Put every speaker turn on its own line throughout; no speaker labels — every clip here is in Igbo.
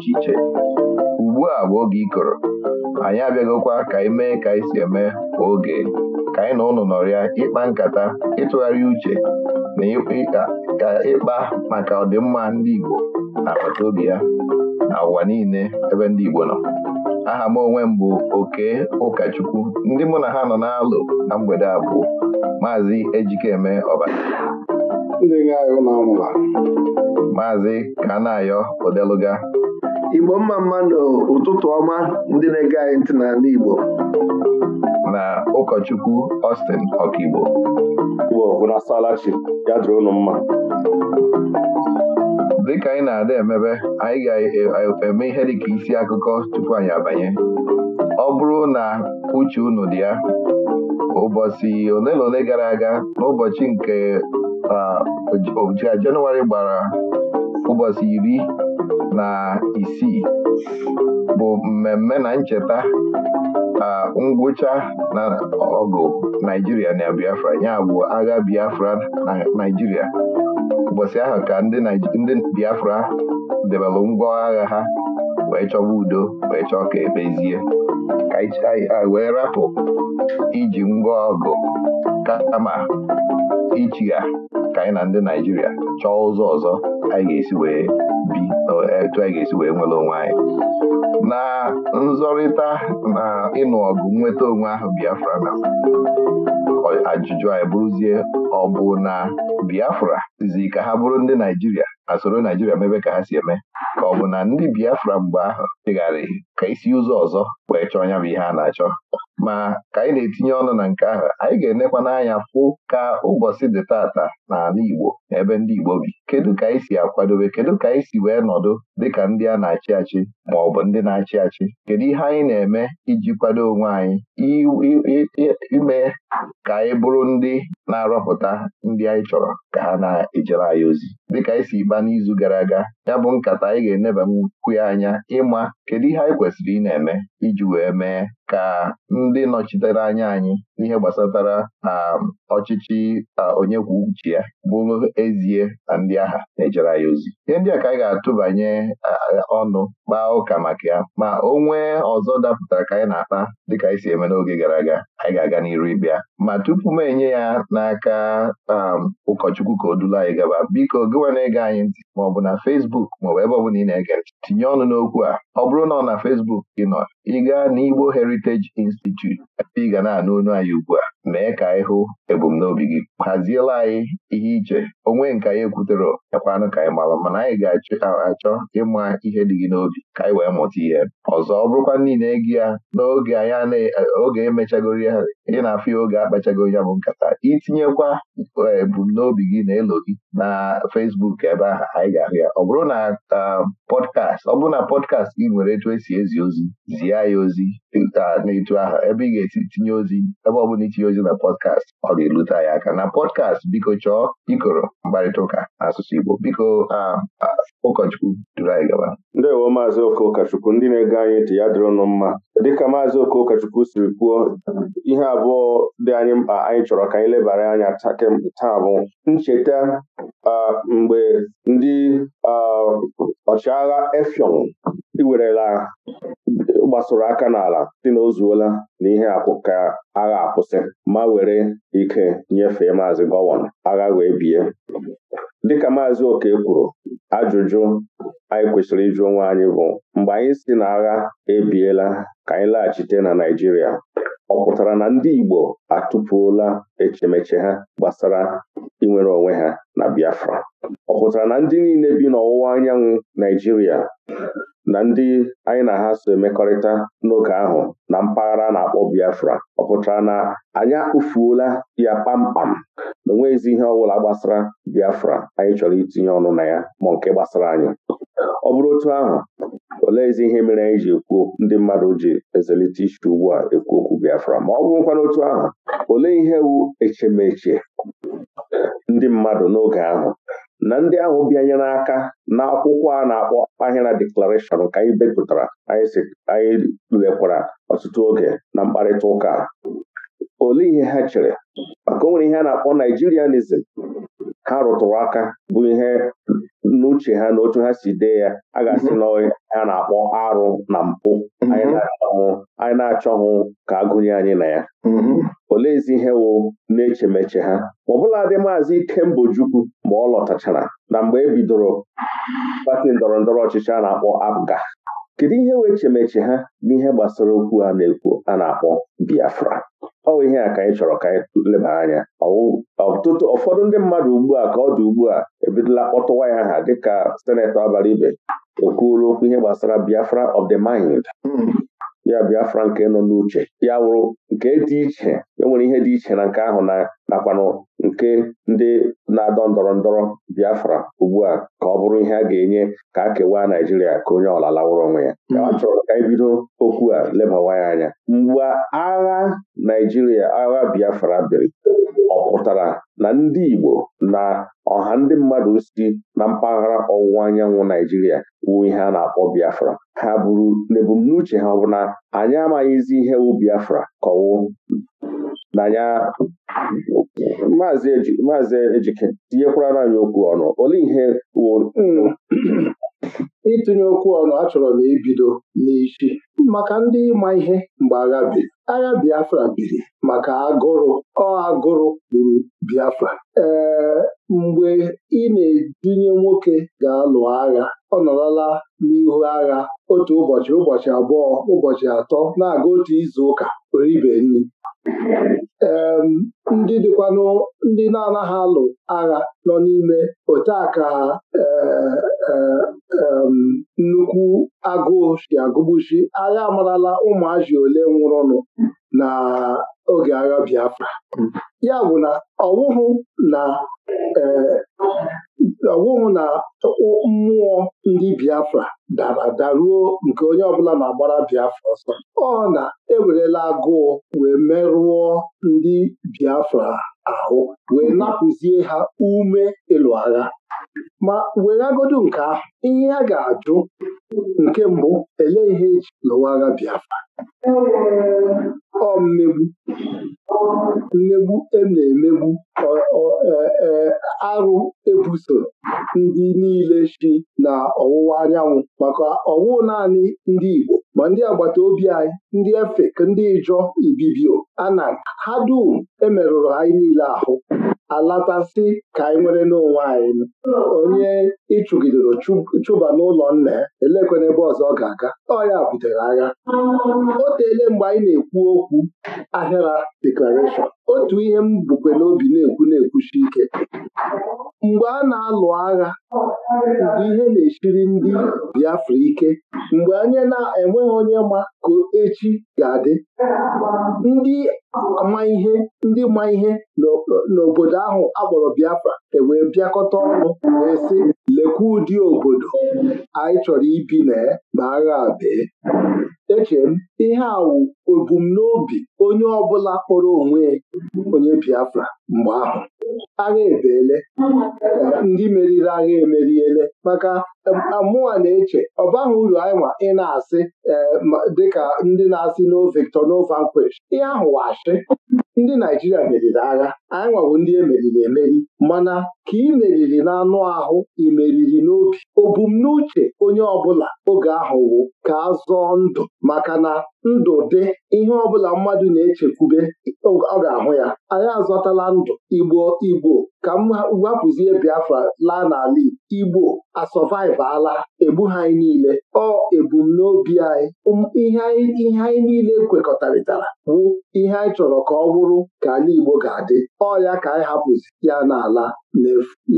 iche iche ugbu a bụ oge ịkọrọ anyị abịagokwa ka anyị mee ka anyị si eme kwa oge ka anyị na ụlọ nọrọ ya ịkpa nkata ịtụgharị uche na ka ịkpa maka ọdịmma ndị Igbo na-akpata obi ya na ụwa niile ebe ndị Igbo nọ aha m onwe m bụ oke ụkọchukwu ndị mụ na ha nọ na-alụ na mgbede a bụ maazị Ejikeme Ọbara maazị Kanayọ
Odeluga igbo mma mma n'ụtụtụ ọma ndị na-ege anyị ntị n'ala igbo
na ụkọchukwu Austin Ọkigbo ya dịrị mma dịka anyị na-ada emebe anyị ga-eme ihe dịka isi akụkọ tupu anyị abanye ọ bụrụ na uche unu dị ya ụbọchị ole na ole gara aga n'ụbọchị nke ah, Jenụwarị gbara ụbọchị iri na isii bụ mmemme na ncheta ngwụcha na ọgụ Naijiria na Biafra ya bụ agha Biafra na Naijiria ụbọchị ahụ ka ndị Biafra debelụ ngwa agha ha wee chọba udo wee chọọ ka ekpezie wee rapụ iji ngwa ọgụ kama ha ka anyị na ndị Naijiria chọọ ụzọ ọzọ anyị ga-esi wee bi etu anyị ga-esi wee nwere onwe anyị na nzọrịta na ịnụ ọgụ nweta onwe ahụ Biafra na ajụjụ anyị bụrụzie ọ bụ na Biafra zi ka ha bụrụ ndị Naijiria a soro Naijiria mebe ka ha si eme ka ọ bụ na ndị Biafra mgbe ahụ chegharị ka isi ụzọ ọzọ wee chọọ anya bụ ihe a na-achọ ma ka anyị na-etinye ọnụ na nke ahụ anyị ga-enekwa n'anya fụ ka ụbọchị dị tata n'ala Igbo ebe ndị Igbo bi kedu ka anyị si akwadobe kedu ka anyị si wee nọdụ dịka ndị a na-achị achị ma ọ bụ ndị na-achị achị kedu ihe anyị na-eme iji kwado onwe anyị ime ka anyị bụrụ ndị na-arọpụta ndị anyị chọrọ ka ha na-ejere anyị ozi dịka anyị si ịgba n'izu gara aga ya bụ nkata anyị ga-eneba nkwu anya ịma kedu ihe anyị kwesịrị ị na-eme iji wee mee ka ndị nọchitere anya anyị n'ihe gbasatara um, ọchịchị onye kwuo uche ya bụrụ ezie na ndị agha na-ejere anyị ozi ihe ndị a ka anyị ga-atụbanye ọnụ kpaa ụka maka ya ma o nwee ọzọ dapụtara ka anyị na-akpa dịka anyị e si eme n'oge gara aga anyị ga-aga n'iru ịbịa ma tupu m enye ya n'aka um, ụkọchukwu ka o dula anyị gaba biko gịwa na-ege anyị ntị ma ọ bụ na fesbuk maọbụ ebe ọ ị na-ege ntị tinye ọnụ n'okwu a ọ bụrụ na ọ na fesbuk gị nọ ị gaa n'Igbo Heritage Institute ebe ị ga na-anụ onu anyị ugbu a mee ka anyị hụ ebumnobi gị haziela anyị ihe iche onwe nke anyị ekwutere ekwanụ ka anyị mara mana anyị ga-achọ ịma ihe dị gị n'obi ka anyị wee mụta ihe ọzọ ọ bụrụkwa niile ego ya n'oge anyị oge emechagoro ya ị na-afụ ya oge akpachagoro ya bụ nkata itinyekwa e, ebumnobi gị na elo gị na Fesbuk ebe ahụ anyị ga-ahụ ya ọ bụrụ na pọdkast ọ bụrụ na pọdkast gị nwere etu esi ezi ozi zie ya ozi n'etu ahụ ebe ị ga etinye ozi ebe ọ itinye ozi na pọdkast ọ ga-elute ya aka na pọdkast biko chọọ ikoro mkparịta ụka n'asụsụ Igbo biko ụkọchukwu duru anyị gaba
maazị Oke Ụkọchukwu ndị na-ege anyị ntị ya dịrị nụ mma
dịka maazị Oke Ụkọchukwu
siri kwuo ihe abụọ dị anyị mkpa anyị chọrọ ka anyị lebara anya taa bụ ncheta mgbe ndị ọchịagha efiọn iwerela gbasoro aka n'ala dị na o na ihe ka agha akwụsị ma were ike nyefee maazị gọvanọ agha wee bie dịka maazị Oke kwuru Ajụjụ anyị kwesịrị ịjụ onwe anyị bụ mgbe anyị si na agha ebiela ka anyị laghachite na Naijiria, ọ pụtara na ndị Igbo atụpụola echemeche ha gbasara inwere onwe ha na Biafra ọ pụtara na ndị niile bi n'ọwụwa anyanwụ Naijiria na ndị anyị na ha so emekọrịta n'oge ahụ na mpaghara na-akpọ Biafra ọ pụtara na anyị akpụfuola ya kpamkpam na onweghịzi ihe ọbụla gbasara Biafra anyị chọrọ itinye ọnụ na ya ma nke gbasara anyị ọ bụrụ otu ahụ ezi ihe mere anyị ji ekwu ndị mmadụ ji ezelite iche ugbu a ekwu okwu Biafra ma ọ bụrụkwa n'otu ahụ olee ihe wu echemeche ndị mmadụ n'oge ahụ na ndị ahụ bịanyere aka na akwụkwọ a na-akpọ ahịra deklarashọn ka anyị bepụtara anyị lekwara ọtụtụ oge na mkparịta ụka olee ihe ha chere maka o nwere ihe a na-akpọ Naijirianism ha rụtụrụ aka bụ ihe n'uche ha na otu ha si dee ya a ga-asị na ha na-akpọ arụ na mpụ mm-hmm. anyị na-achọghị ka agụnye anyị na ya mm-hmm. oleezi ihe wụ na-echemeche ha ma dị maazị Ikembojukwu ma ọ lọtachara na mgbe e bidoro pati ndọrọ ndọrọ ọchịchị a na-akpọ APGA kedu ihe wee echemeche ha n'ihe gbasara okwu a na-ekwu a na-akpọ Biafra ọ bụ ihe a ka anyị chọrọ ka anyị leba anya ọtụtụ ụfọdụ ndị mmadụ ugbu a ka ọ dị ugbu a ebidola kpọtụwa ya ha dịka senetọ abalị ibe okwuru okwu ihe gbasara Biafra of the mind hmm. ya Biafra nke nọ n'uche ya wụrụ nke dị iche enwere ihe dị iche na nke ahụ na nakwanụ nke ndị na-adọ ndọrọ ndọrọ Biafra ugbu a ka ọ bụrụ ihe a ga-enye ka a kewaa Naijiria ka onye ọla lawụrụ onwe ya ọ hmm. chọrọ ka anyị bido okwu a lebawa anya mgbe agha Naijiria agha Biafra biri ọ pụtara na ndị Igbo na ọha ndị mmadụ si na mpaghara ọwụwa anyanwụ Naijiria wuo ihe a na-akpọ Biafra ha buru n'ebumnuche ha ọ bụ na anyị amaghịzi ihe wụ Biafra na ya maazị ejike tinyekwara anyị okwu ọnụ olee ihe wụ
Ịtụnye okwu ọnụ achọrọ m ibido n'isi maka ndị ịma ihe mgbe agha biri. Agha Biafra biri maka agụrụ ọ agụrụ gburu Biafra ee mgbe ị na-edunye nwoke ga-alụ agha ọ nọrọla n'ihu agha otu ụbọchị ụbọchị abụọ ụbọchị atọ na-aga otu izu ụka oribe nri ee ndị dịkwanụ na-anaghị alụ agha nọ n'ime otu aka ee Eh, nnukwu agụụ si agụgbuchi agha amarala ụmụazị ole nwụrụnụ na oge agha Biafra ya bụ na ọwụhụ na eh, ọwụhụ na mmụọ ndị Biafra dara daruo nke onye ọbụla na-agbara Biafra ọsọ ọ na ewerela agụụ wee merụọ ndị Biafra ahụ wee napụzie ha ume ịlụ agha ma weregodu nke ahụ ihe a ga-ajụ nke mbụ ele ihe eji lụwa agha Biafra ọ mmegbu mmegbu e na-emegbu e, e, arụ ebuso ndị niile si na ọwụwa anyanwụ maka ọwụ naanị ndị Igbo ma ndị agbata obi anyị ndị Efik ndị Ijọ Ibibio Anan ha dum emerụrụ anyị niile ahụ alatasị ka anyị nwere n'onwe anyị onye ịchụgidoro chụba n'ụlọ nna ya elekwena ebe ọzọ ọ ga-aga ọ ya butere agha o teele mgbe anyị na-ekwu okwu ahịara deklarashọn otu ihe m bukwe n'obi na-ekwu na-ekwuchi ike mgbe a na-alụ agha mgbe ihe na-echiri ndị Biafra ike mgbe anyị na-enweghị onye ma ka echi ga-adị ndị ma ihe ndị ma ihe n'obodo ahụ akpọrọ Biafra ewee bịakọta ọnụ wee sị lekwa ụdị obodo anyị chọrọ ibi na ya ma agha bee Eche m ihe a wụ ebumnobi onye ọbụla kpọrọ onwe onye Biafra mgbe ahụ agha ebeele ndị meriri agha emeriele maka eh, mụa na-eche ọ uru anyịnwa ị na-asị eh, dịka ndị na-asị no victor no vanquish ihe ahụ washi ndị Naijiria meriri agha anyị nwawo ndị emeriri emeri mana ka ị meriri n'anụ ahụ ị meriri n'obi obumnuche onye ọbụla oge ahụ wụ ka a zọọ ndụ maka na ndụ dị ihe ọbụla mmadụ na-echekwube ọ ga-ahụ ya anyị azọtala ndụ igbo igbo ka m wapụzie biafra laa n'ala igbo asọvaiv ala egbu anyị niile ọ ebumnobi anyị ihe anyị niile kwekọtarịtara bụ ihe anyị chọrọ ka ọ bụrụ ka ala igbo ga-adị ọ ya ka anyị hapụzi ya n'ala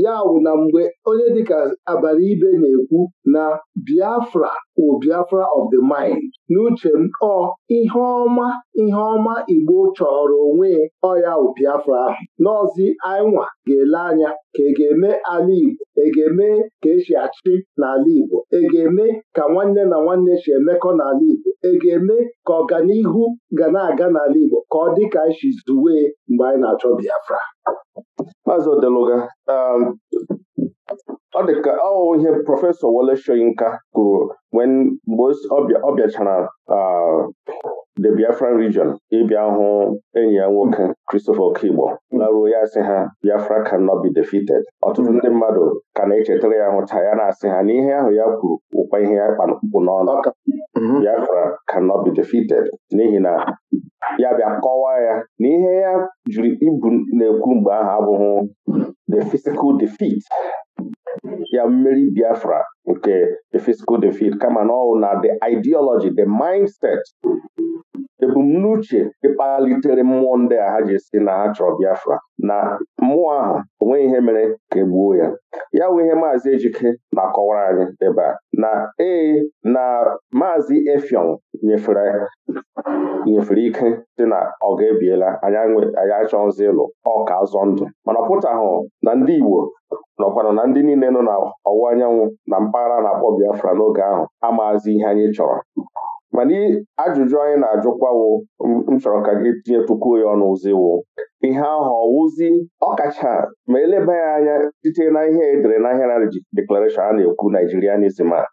ya wụ na mgbe onye dịka abalị ibe na-ekwu na Biafra wụ Biafra of the mind n'uche m ọ ihe ọma ihe ọma Igbo chọrọ onwe ọya wụ Biafra ahụ n'ọzi anyịnwa ga-ele anya ka e ga-eme ala Igbo e ga-eme ka esi achị n'ala Igbo e ga-eme ka nwanne na nwanne si emekọ n'ala Igbo e ga-eme ka ọganihu ga na-aga n'ala Igbo ka ọ dị ka anyị e zuwe mgbe anyị na-achọ Biafra Maazị Odeluga
um, ọ dị ka ọ ihe prọfesọ Wole Soyinka kwuru mgbe ọ bịachara um, the Biafran region ịbịa hụ enyi ya nwoke Christopher Okigbo laruo ya sị ha Biafra cannot be defeated ọtụtụ ndị mmadụ ka na-echetara ya hụcha ya na-asị ha n'ihe ahụ ya kwuru ụkwa ihe ya kpa n'ọnụ mm-hmm. Biafra cannot be defeated n'ihi na ya bịa kọwaa ya n'ihe ya jiri ibu na-ekwu mgbe ahụ abụghị the physical defeat ya mmeri Biafra nke the physical defeat kama na na the ideology the mindset ebumnuche ịkpalitere mmụọ ndị a ha ji si na ha chọrọ Biafra na mmụọ ahụ onweghị ihe mere ka e gbuo ya ya wụ ihe maazị Ejike na-akọwara anyị ebe a na ee na maazị efiọn nyefere nyefere ike dị na ọ ga-ebiela anyị achọghịzi ịlụ ọka azọ ndụ mana ọ pụtahụ na ndị Igbo nọkwanụ na ndị niile nọ n'ọwụwa anyanwụ na mpaghara na-akpọ Biafra n'oge ahụ amaazị ihe anyị chọrọ mana ajụjụ anyị na-ajụkwawo m chọrọ ka gị tinyetukwuo ya ọnụ ụziwo ihe ahụ ọwụzi ọkacha ma eleba ya anya site na ihe edere na a na-ekwu Naijirianism a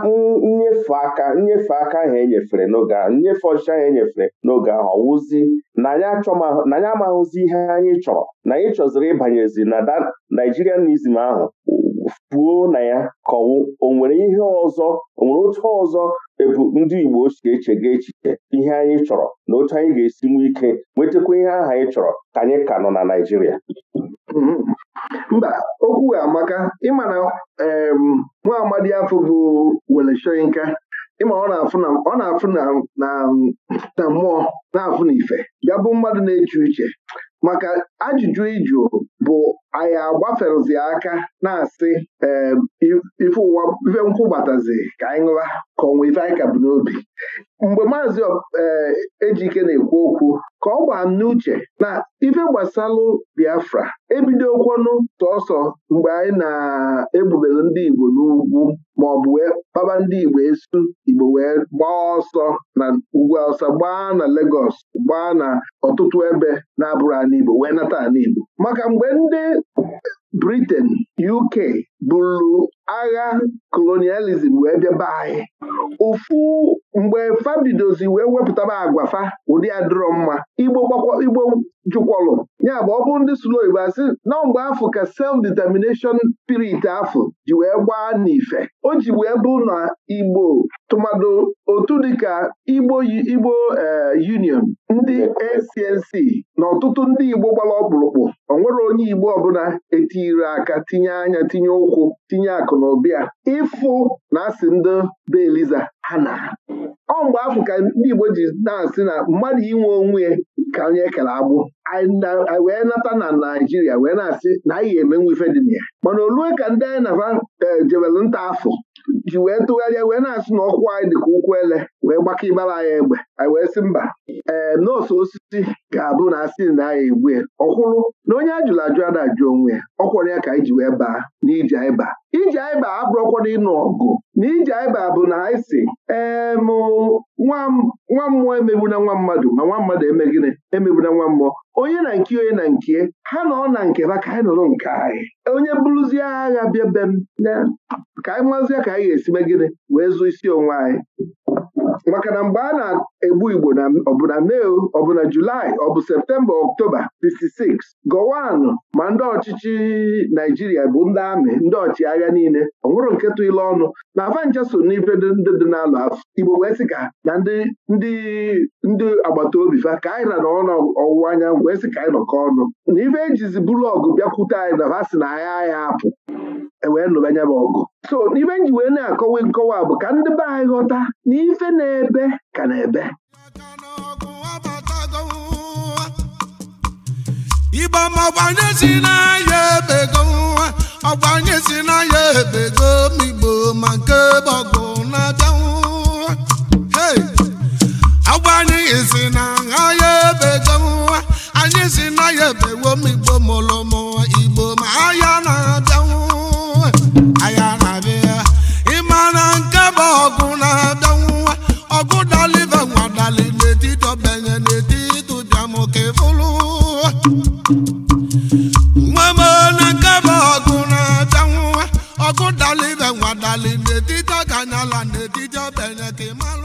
nnyefe aka nnyefe aka ahụ enyefere n'oge ahụ nnyefe ọchịchị ahụ enyefere n'oge ahụ ọwụzi na anyị amaghụzi ihe anyị chọrọ na anyị chọziri ịbanyezi na Naijirianism ahụ puo na ya kọwụ o nwere ihe ọzọ ọ nwere otu ọzọ ebu ndị Igbo ochie ga echiche ihe anyị chọrọ na otu anyị ga-esi nwee ike nwetakwa ihe aha anyị chọrọ ka anyị ka nọ na Naịjirịa
mm-hmm. mba okwu amaka ịma na nwa amadi afọ bụ wele ịma ọ na-afụ na mmụọ na-afụ na ife bụ mmadụ na-eche uche maka ajụjụ ịjụ bụ anyị agbaferụzi aka na-asị ife ụwa gbatazi ka anyị ṅụwa ka ọ nwee ife anyị ka bụ n'obi mgbe maazị eh, ejike na-ekwu okwu ka ọ gbaa n'uche na ife gbasalụ Biafra ebidokwonụ tọọsọ mgbe anyị na-ebubere ndị Igbo n'ugwu ma ọ bụ wee kpaba ndị Igbo esu Igbo wee gbaa ọsọ na ugwu ọsọ gbaa na Legọs gbaa na ọtụtụ ebe na-abụrụ ala Igbo wee nata ala maka mgbe ndị Britain UK bụrụ agha kolonializm wee bịaba anyị ụfụ mgbe fa bidozi wee wepụtaba agwa fa ụdị adịrọ mma igbo igbo jụkwọlụ ya bụ ọ ndị sụrụ oyibo asị na mgbe afọ ka self determination spirit afọ ji wee gbaa n'ife o ji wee bụ na igbo tụmadụ otu dịka igbo igbo eh, union ndị ACNC na ọtụtụ ndị igbo gbara ọkpụrụkpụ ọ nwere onye igbo ọbụla etiri aka tinye anya tinye ụkwụ tinye akụ akụ na ụba ịfụ na asị ndị be Eliza ha na ọ mgbe afọ ka ndị Igbo ji na-asị na mmadụ inwe onwe ka onye kere agbụ wee nata na Naijiria wee na-asị na anyị ga eme ife dị m ya mana olue ka ndị anyị na eh, nta afọ ji wee tụgharịa wee na-asụ na ọkwụ anyị dịka ụkwụ ele wee gbakọ ịgbara anyị egbe anyị wee sị mba ee eh, nọọsụ osisi ga-abụ na asị na anyị egwe ọkwụrụ na onye ajụrụ ajụ a na-ajụ onwe ya ọkwọrọ ya ka anyị ji wee baa n'iji anyị baa iji anyị baa abụrọkwana ịnụ ọgụ na ije ba bụ na anyị si nwa mmụọ emegbuna nwa mmadụ ma nwa mmadụ emegbu emegbuna nwa mmụọ onye na nke onye na nke ha nọ na nke ba ka anyị nọrọ nke anyị onye bụrụzie agha bịa be m ka anyị mazie ka anyị ga-esi megide wee zụ isi onwe anyị maka na mgbe a na-egbu Igbo na ọbụna Mee ọbụna Julaị ọ bụ Septemba Ọktoba 56 gọwanụ ma ndị ọchịchị Naijiria bụ ndị amị ndị ọchịagha niile ọnwụrụ nketụ ile ọnụ na avanja so n'ife ndị dị n'alụ afọ Igbo wee sị ka na ndị ndị agbata obi fa ka anyị na n'ọnụ ọwụwa anyanwụ wee sị ka anyị nọkọ ọnụ na ife ejizi bụrụ bịakwute anyị na ha si na agha anyị apụ E wee nụba anya bụ ọgụ so n'ibe nji wee na-akọwa nkọwa bụ ka ndị be anyị ghọta na ebe ka na-ebe
ịgbama ọgbanye si n'ahịa ebego nwa ọgbanye si n'ahịa ebego na-abịa nwa ọgbanye ebego ọkụ dali ibe nwa dali n'etiti ọganyala n'etiti ọbenye ka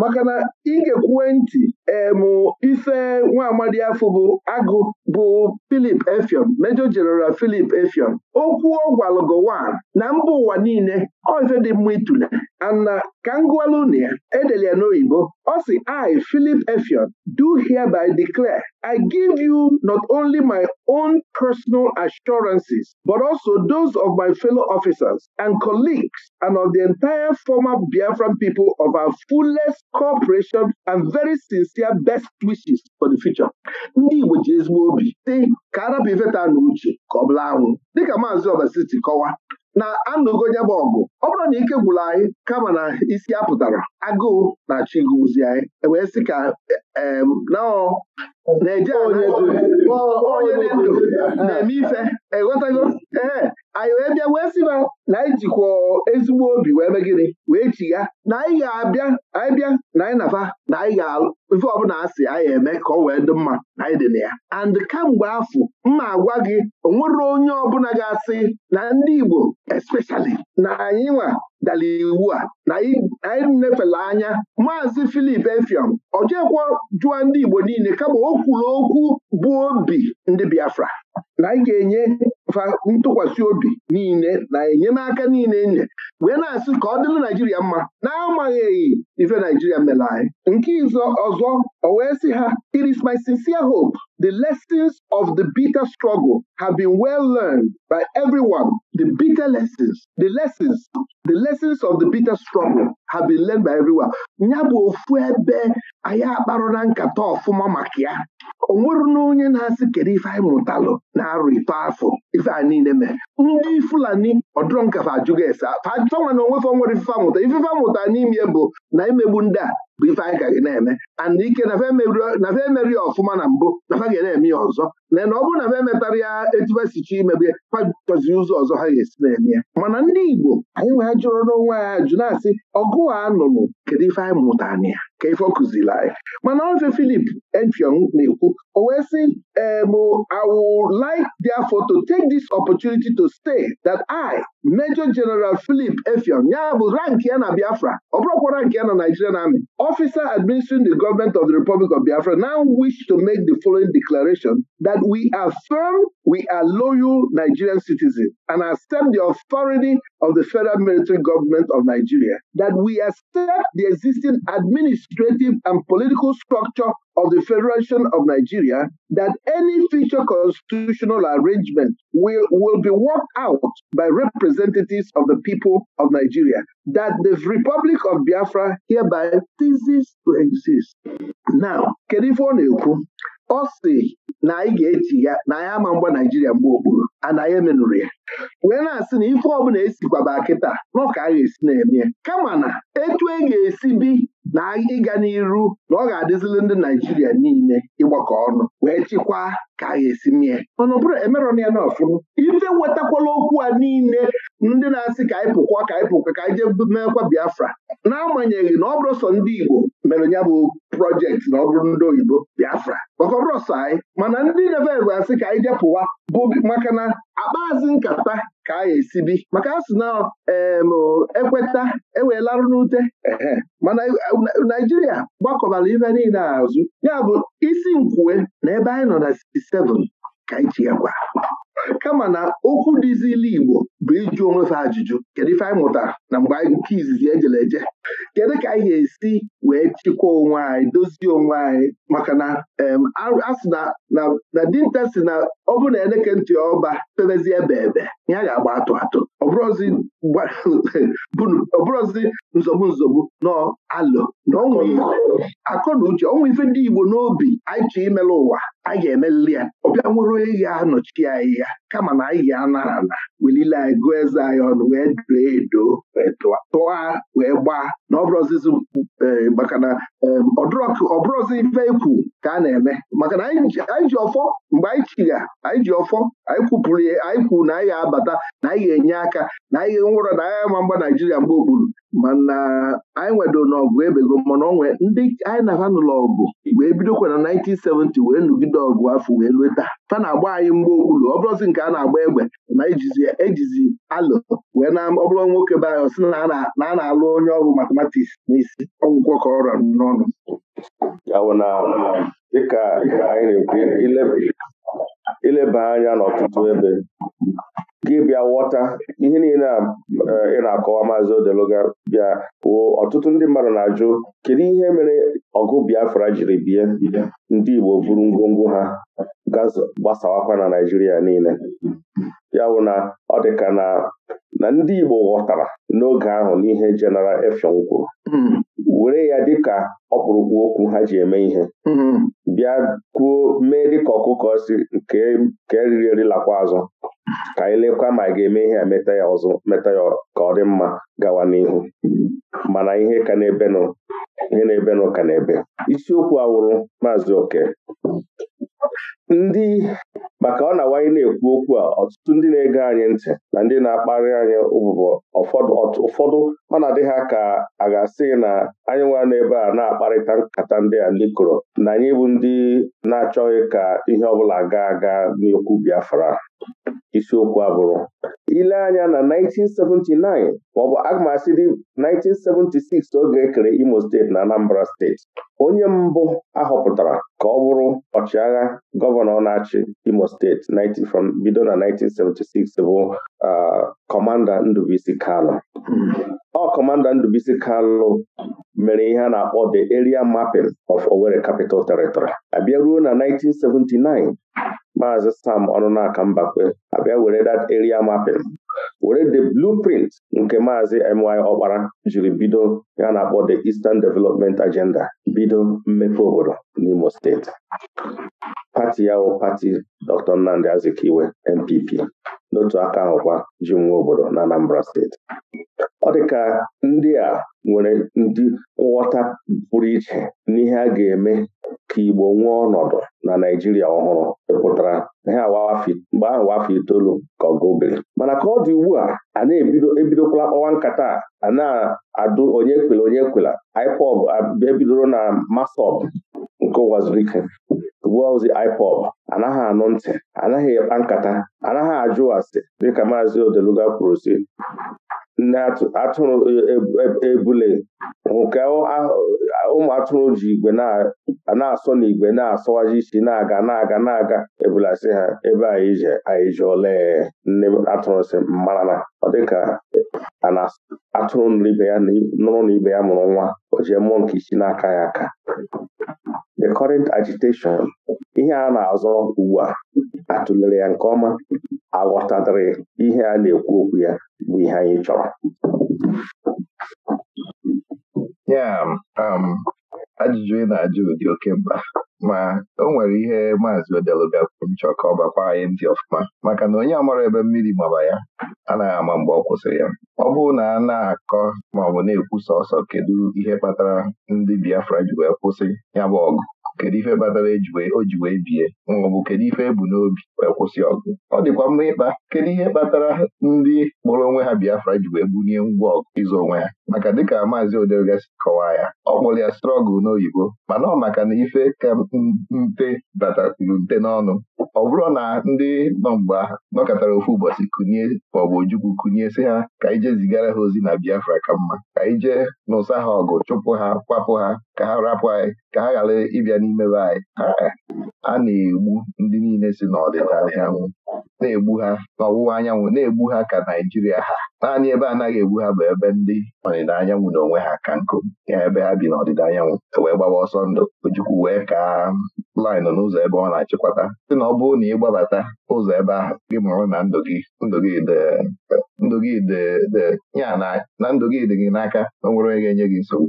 maka na ị ga kwue ntị emụ ife nwa amadi afọ bụ agụ bụ Philip Efion Major General Philip Efion okwu ọ na mba ụwa niile ọ dị mma itule ana ka ngwaluna ya edele ya n'oyibo ọ si I Philip Efion do hereby declare I give you not only my own personal assurances, but also those of my fellow officers and colleagues and of the entire former Biafran people of our fullest cooperation and very sincere wishesịa best wishes for the future ndị Igbo ji ezigbo obi dị ka arabi veta na uche ka ọ bụla anwụ dịka maazị Obasi kọwa na anụgo ya bụ ọgụ ọ bụrụ na ike gwụrụ anyị kama na isi apụtara, agụụ na chigụzi anyị e wee sị ka na-eje onye dị ndụ na-eme ife ịghọtago e ee anyị wee bịa wee sị na na anyị jikwa ezigbo obi wee mee gịnị wee chigha na anyị ga-abịa anyị bịa na anyị nafa na anyị ga-alụ ife ọbụla asị anyị eme ka ọ wee dị mma na anyị dị na ya and kamgbe afọ mma agwa gị o nwere onye ọbụla ga-asị na ndị Igbo especially na anyị nwa dara iwu a na anyị nefela anya maazị Filip Efiam ọ jekwa jụọ ndị Igbo niile kama o kwuru okwu bụ obi ndị Biafra na anyị ga-enye ntụkwasị obi niile na enyemaka niile e nye wee na-asị ka ọ dịrị Naijiria mma na-amaghị ife Naijiria mere anyị nke ọzọ o wee sị ha it my sincere hope The lessons of the bitter struggle have been well learned by everyone. The bitter of the bitter struggle have been by everyone. Ya bụ ofu ebe anyị akparụla nkata ọfụma maka ya o nwere na onye na-asị kedu ife anyị mụtalụ na-arụ ito afọ ife a niile mee ndị Fulani ọdụrụ nkafa ajụghị ese na onwefe nwere ifefe amụta ifefe amụta n'ime bụ na imegbu ndị a bụ ife anyị ka ga na-eme and ike nafe emerie ọfụma na mbụ nafa ga na-eme ya ọzọ lee na ọ bụrụ na m emetara ya etubesichi imegbe kpachọzi ụzọ ọzọ ha ga-esi na-eme ya mana ndị Igbo anyị wee jụrụ n'onwe anyị ajụ na-asị ọgụ a nụrụ kedu ife anyị mụtara ya ka ife ọkụziri kụziri anyị mana ofe Filip Efiong na-ekwu o wee sị em I would like therefore to take this opportunity to state that I Major General Philip Efiong ya bụ rank ya na Biafra ọ bụrụkwa rank ya na Nigerian Army officer administering the government of the Republic of Biafra now wish to make the following declaration that we are firm, we are loyal Nigerian citizens and accept the authority of the federal military government of Nigeria, that we accept the existing administrative and political structure of the Federation of Nigeria, that any future constitutional arrangement will, will be worked out by representatives of the people of Nigeria, that the Republic of Biafra hereby ceases to exist. Now, kedu ife ọ na-ekwu ọ si na anyị ga-echi ya na anyị ama mgba naijiria mgbe okporo anaghị emenụrụ ya wee na-asị na ife ọbụla esikwaba kịta n'ọka a ga-esi na-eme kama na etu e ga-esi bi na ịga n'iru na ọ ga-adịzili ndị naijiria niile ịgbakọ ọnụ wee chịkwaa ka a ga-esi mie mana ọ bụrụ emerọna ya na ife nwetakwala okwu a niile ndị na-asị ka anyị pụkwa ka anyị pụkwa ka anyị jee meekwa Biafra n'agbanyeghị na ọ bụrụ sọ ndị Igbo mere ya bụ projekti na ọ bụrụ ndị oyibo Biafra maka ọ bụrụ sọ anyị mana ndị neveve asị ka anyị jee pụwa bụ maka na akpazi nkata ka a ga-esi bi maka asị na ekweta enweelarụ n'ute mana e, e, Naijiria gbakọbara ife niile azụ ya bụ isi nkwue na ebe anyị nọ na 27 ka anyị tinye gwa kama na okwu dịzili Igbo bụ ịjụ onwefe ajụjụ kedu ife anyị mụtara na mgbe anyị nke izizi ejele eje kedu ka anyị ga-esi wee chịkwa onwe anyị dozie onwe anyị maka na asị na dinta si na ọ bụrụ na eleke ntị ọba pebezie ebe ya ga-agba atụ atụ ọbụrụzi nzọgbu nzọgbu n'alụ na akọ na uche ọnwa ife ndị Igbo n'obi anyị chọ imelụ ụwa anyị ga-emelili ya ọbịa nwere ehi anọchi anyị ya kama na anyị ga-anara na. welile anyị gụọ eze anyị ọnụ wee doo edo tụọ wee gbaa na ọbụrụzizi e, maka na e, ọbụrụzi ife ekwu ka a na-eme maka na anyị ji ọfọ mgbe anyị chiga anyị ji ọfọ anyị kwupụrụ ya anyị kwuru na anyị ga-abata na anyị ga-enye aka na anyị ga-enwụrọ na anyị ama mgba Naijiria mgbe okpuru mana anyị nwedo n'ọgụ ebego mana onwe ndị anyị na-aba n'ụlọ ọgụ wee bidokwa na 1970 wee nụgide ọgụ afọ wee lue taa fa na-agba anyị mgbe okpuru ọ bụrụzi nke a na-agba egbe na ejizi ejizi alụ wee na ọ nwoke be anyị sị na a na-alụ onye ọgụ matematiks n'isi ọgwụgwọ ka ọra n'ọnụ ileba anya
n'ọtụtụ ebe gị bịa ghọta ihe niile a eh, ị na-akọwa maazị Odeluga bịa wụ ọtụtụ ndị mmadụ na-ajụ kedu ihe mere ọgụ Biafra jiri bie ndị Igbo buru ngwongwo ha gbasawakwa na Naịjirịa niile ya bụ na ọ dịka na ndị Igbo ghọtara n'oge ahụ n'ihe Jeneral Efeon kwuru hmm. were ya dịka ọkpụrụkpụ okwu ha ji eme ihe hmm. bịa kwuo mee dịka ọkụkọ si nke eriri erilakwa azụ ka anyị lekwa ma ga-eme ihe a meta ya ọzọ meta ya ka ọ dị mma gawa n'ihu mana ihe na-ebenụ ihe na ebe isiokwu awụrụ Maazị Oke ndị maka ọ na-awanye na-ekwu okwu a ọtụtụ ndị na-ege anyị ntị na ndị na-akparị anyị ụbụbọ ụfọdụ ọ na-adị ha ka a ga-asị na anyị nwa n'ebe a na-akparịta nkata ndị a ndị kụrụ na anyị bụ ndị na-achọghị ka ihe ọbụla gaa aga n'okwu Biafra isiokwu abụrụ. ile anya na 1979 maọbụ aga m dị 1976 oge ekere Imo steeti na Anambra steeti onye mbụ ahọpụtara ka ọ bụrụ ọchịagha gọ gọvanọ na-achị Imo steeti bido na 1976 bụ kọmanda Ndubisi Kalụ ọ kọmanda Ndubisi Kalụ mere ihe a na-akpọ the area mapping of Owerri Capital Territory abịa ruo na 1979 Maazị Sam Ọnụnaka Mbakwe abịa were that area mapping were the blueprint nke Maazị MY Ọkpara jiri bido ya na-akpọ the Eastern Development Agenda bido mmepe obodo n'Imo steeti pati ya bụ pati Dr. Nnamdi Azikiwe NPP n'otu aka kwa ji nwa obodo na Anambra steeti ọ dị ka ndị a nwere ndị nghọta pụrụ iche n'ihe a ga-eme ka Igbo nwee ọnọdụ na Naịjirịa ọhụrụ pụtara ihe mgbe ahụ afọ itoolu ka ọ gobere mana ka ọ dị ugbu a a na ebidokwala kpọwa nkata a na-adụ onye kwela onye kwela IPOB abịa na masọb nke ụwa ike ugbua ozi anaghị anụ ntị anaghị ekpa nkata anaghị ajụ asị dịka maazi Odeluga kwuru si nne atụrụ e, e, e, ebule nke ụmụ atụrụ ji igwe na-asọ n'igwe na-asọwaji isi na-aga na-aga na-aga ebulasị ha ebe anyị ji anyị ole nne atụrụ si mara na ọ dịka atụrụ nụrụ ibe ya na ibe ya mụrụ nwa o jee mmụọ nke isi aka ya aka current agitation ihe a na-azọ ugbu a atụlere ya nke ọma aghọtatịrị ihe a na-ekwu okwu ya bụ ihe anyị chọrọ
ya um, ajụjụ ị na-ajụ ụdị oke mkpa ma o nwere ihe maazị odeluga kwuru nchọ ka ọ bakwa anyị ndị ọfụma maka na onye amara ebe mmiri gbaba ya anaghị ama mgbe ọ kwụsịrị ya ọ bụrụ na a na-akọ ma ọ bụ na-ekwu sọsọ kedu ihe kpatara ndị Biafra ji wee kwụsị ya bụ ọgụ kedu ife kpatara e o ji wee bie maọbụ kedu ife ebu n'obi wee kwụsị ọgụ ọ dịkwa mma ịkpa kedu ihe kpatara ndị kpọrọ onwe ha Biafra e ji wee bunye ngwa ọgụ ịzụ onwe ha maka dịka maazị odergasi kọwaa ya ọ kpọrọ ya strọgụl n'oyibo mana ọ maka na ife ka nte batakwuru nte n'ọnụ ọ bụrụ na ndị nọ mgbe nọkọtara ofu ụbọchị Kunye maọbụ ojukwu Kunye, sị ha ka ije zigara ha ozi na Biafra ka mma ka ije n'ụsa ha ọgụ chụpụ ha kwapụ ha ka ha rapụ anyị ka ha ghara ịbịa n'ime be anyị a na-egbu ndị niile si n'ọdịda anyanwụ na-egbu ha n'ọwụwa anyanwụ na-egbu ha ka Naijiria ha naanị ebe anaghị egbu ha bụ ebe ndị ọdịda anyanwụ na onwe ha ka nkụ ya ebe ha bi n'ọdịda anyanwụ e wee gbawa ọsọ ndụ ojukwu wee ka laịnụ n'ụzọ ebe ọ na-achịkwata sị na ọ bụrụ na ị gbabata ụzọ ebe ahụ gị mụrụ na ndụ gị ndụ gị ya na ndụ gị dị gị n'aka o nwere onye ga-enye gị nsogbu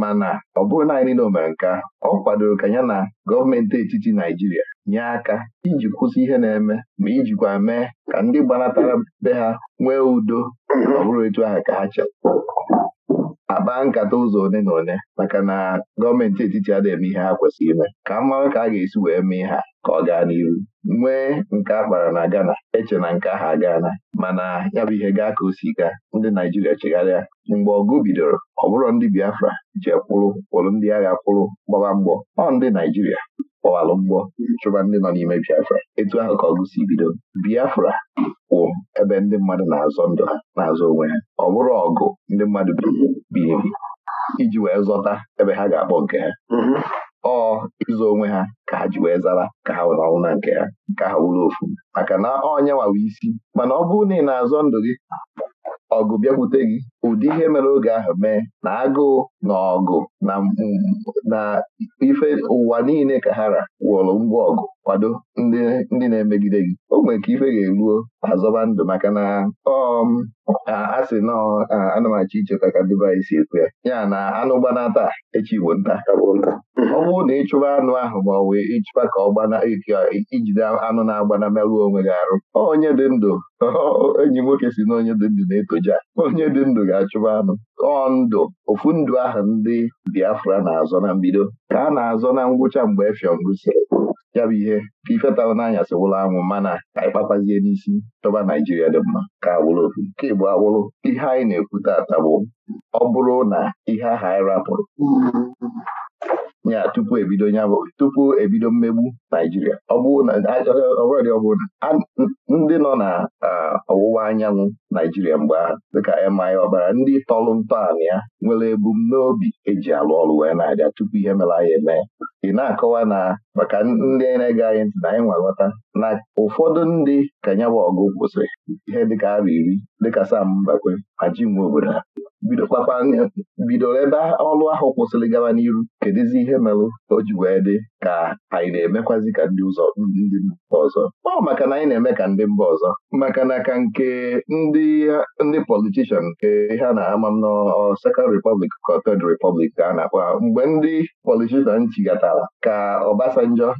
mana ọ bụrụ na anyị niile o mere nke ọ kwadoro ka ya na gọọmenti etiti Naijiria nye aka iji kwụsị ihe na-eme ma ijikwa mee ka ndị gbanatara be ha nwee udo ọ bụrụ etu ahụ ka ha chere akpa nkata ụzọ one na one maka na gọọmenti etiti adịghị eme ihe ha kwesịrị ime ka m mara ka a ga-esi wee mee ha ka ọ gaa n'iru nwee nke a kpara na Ghana eche na nke ahụ agaana mana ya bụ ihe gaa ka o si gaa ndị Naijiria chegharịa mgbe ọgụ bidoro ọ bụrụ ndị Biafra je kwụrụ kwụrụ ndị agha kwụrụ gbaba mgbọ ọ ndị Naijiria kpọwalụ mgbọ chụba ndị nọ n'ime Biafra etu ahụ ka ọgụ si bido Biafra wụ ebe ndị mmadụ na-azọ ndụ ha na-azọ onwe ha ọ bụrụ ọgụ ndị mmadụ biliri iji wee zọta ebe ha ga-akpọ nke ha mhm. ọ ịzọ onwe ha ka ha ji wee zara ka ha were ọnwụ na nke ha nke ha wụrụ ofu maka na ọ ọnyanwawa isi mana ọ bụrụ na ị na-azọ ndụ gị ọgụ bịakwute gị ụdị ihe mere oge ahụ mee na agụụ na ọgụ na ife ụwa niile ka ha ra wụrụ ngwa ọgụ kwado ndị na-emegide gị o nwere ka ife ga-eruo azọba ndụ maka na ọm um, a sị nọ anamachi icheta ka Dubai si ya ya na anụ gbanata echi nta ọ bụrụ na ịchụba anụ ahụ ma ọ ịchụba ka ọ gbana ijide anụ na-agbana merụọ onwe gị arụ onye dị ndụ enyi nwoke si na onye dị ndụ na-etoja onye dị ndụ ga-achụba anụ ọ ndụ ofu ndụ ahụ ndị Biafra na-azọ na mbido ka a na-azọ na ngwụcha mgbe efiọm gụsịrị ya ihe ka nanya n'anyasị wụrụ anwụ mana ka anyị kpakpazie n'isi chọba Naijiria dị mma ka agbụrụ ofu nke bụ agbụrụ ihe anyị na-ekwu tata bụ ọ bụrụ na ihe ahụ anyị rapụrụ ya tupu ebido ya tupu ebido mmegbu Naijiria ọ bụrụ ndị nọ na ọwụwa anyanwụ Naijiria mgbe ahụ dịka MI ọbara ndị tọrụ ntọala ya nwere ebumnobi eji alụ ọrụ wee na-abịa tupu ihe mere anyị eme ị na-akọwa na maka ndị na-ege anyị ntị na anyị nwa na ụfọdụ ndị ka ya bụ ọgụ kwụsịrị ihe dịka arụ iri dịka Sam Mbakwe ma ji nwe obodo ha Bido bidokpakpa bidoro ebe ọlụ ahụ kwụsịrị gaba n'iru kedụzi ihe merụ o ji wee dị ka anyị na-emekwazi ka ndị ụzọ ndị mba ọzọ ọ maka na anyị na-eme ka ndị mba ọzọ maka na ka nke ndị ndị politishan nke ihe a na-ama m na Second Republic ka Third Republic ka a na-akpa mgbe ndị politishan chigatara ka Obasanjo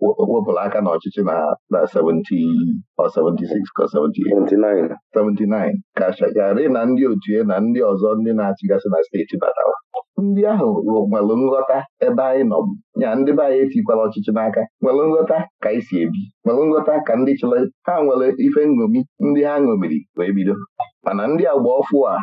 wepụrụ aka n'ọchịchị na na 70 or 76 ka 78 79 ka Shagari na ndị otu na ndị ọzọ ọzọ ndị na-achịgasị na steeti batara ndị ahụ nwere nghọta ebe anyị nọ ya ndị be anyị etikwala ọchịchị n'aka nwere nghọta ka anyị si ebi nwere nghọta ka ndị chịrị ha nwere ife nṅomi ndị ha ṅomiri wee bido mana ndị agba ọfụ a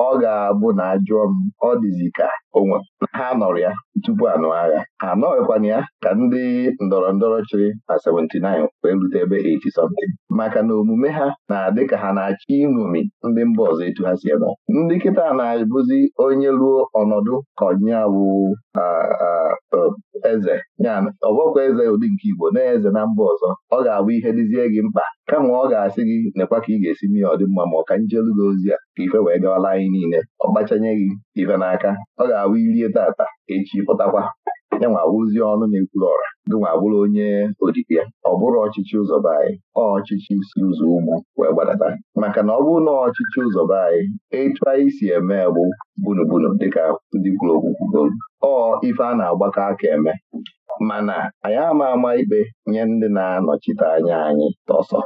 ọ ga-abụ na ajụọ m ọ dịzi ka onwe ha nọrọ ya tupu anụ agha Ha anọghịkwana ya ka ndị ndọrọ ndọrọ chịrị na 79 wee rute ebe 80 something maka na omume ha na-adị ka ha na-achọ iṅomi ndị mba ọzọ etu ha si eme ndị kịta na-abụzi onye ruo ọnọdụ ka onye bụ eze ya ọbọkwa eze ụdị nke Igbo na-eze na mba ọzọ ọ ga-abụ ihe dịzie gị mkpa kama ọ ga-asị gị nekwa ka ị ga-esi mee ọ dị mma ma ọ ka njelu gị ozi a ka ife wee gawala anyị niile ọ gbachanye gị ife n'aka ọ ga-awụ irie tata echi pụtakwa ya nwa awụzi ọnụ na-ekwuru ọra gị nwa bụrụ onye odibo ya ọ bụrụ ọchịchị ụzọba anyị ọ ọchịchị si ụzọ ugwu wee gbadata maka na ọ bụrụ na ọchịchị ụzọba anyị etu anyị si eme bụ bunubunu dịka ndị kwuru ọ ife a na-agbakọ aka eme mana anyị ama ama ikpe nye ndị na-anọchite anya anyị tọsọ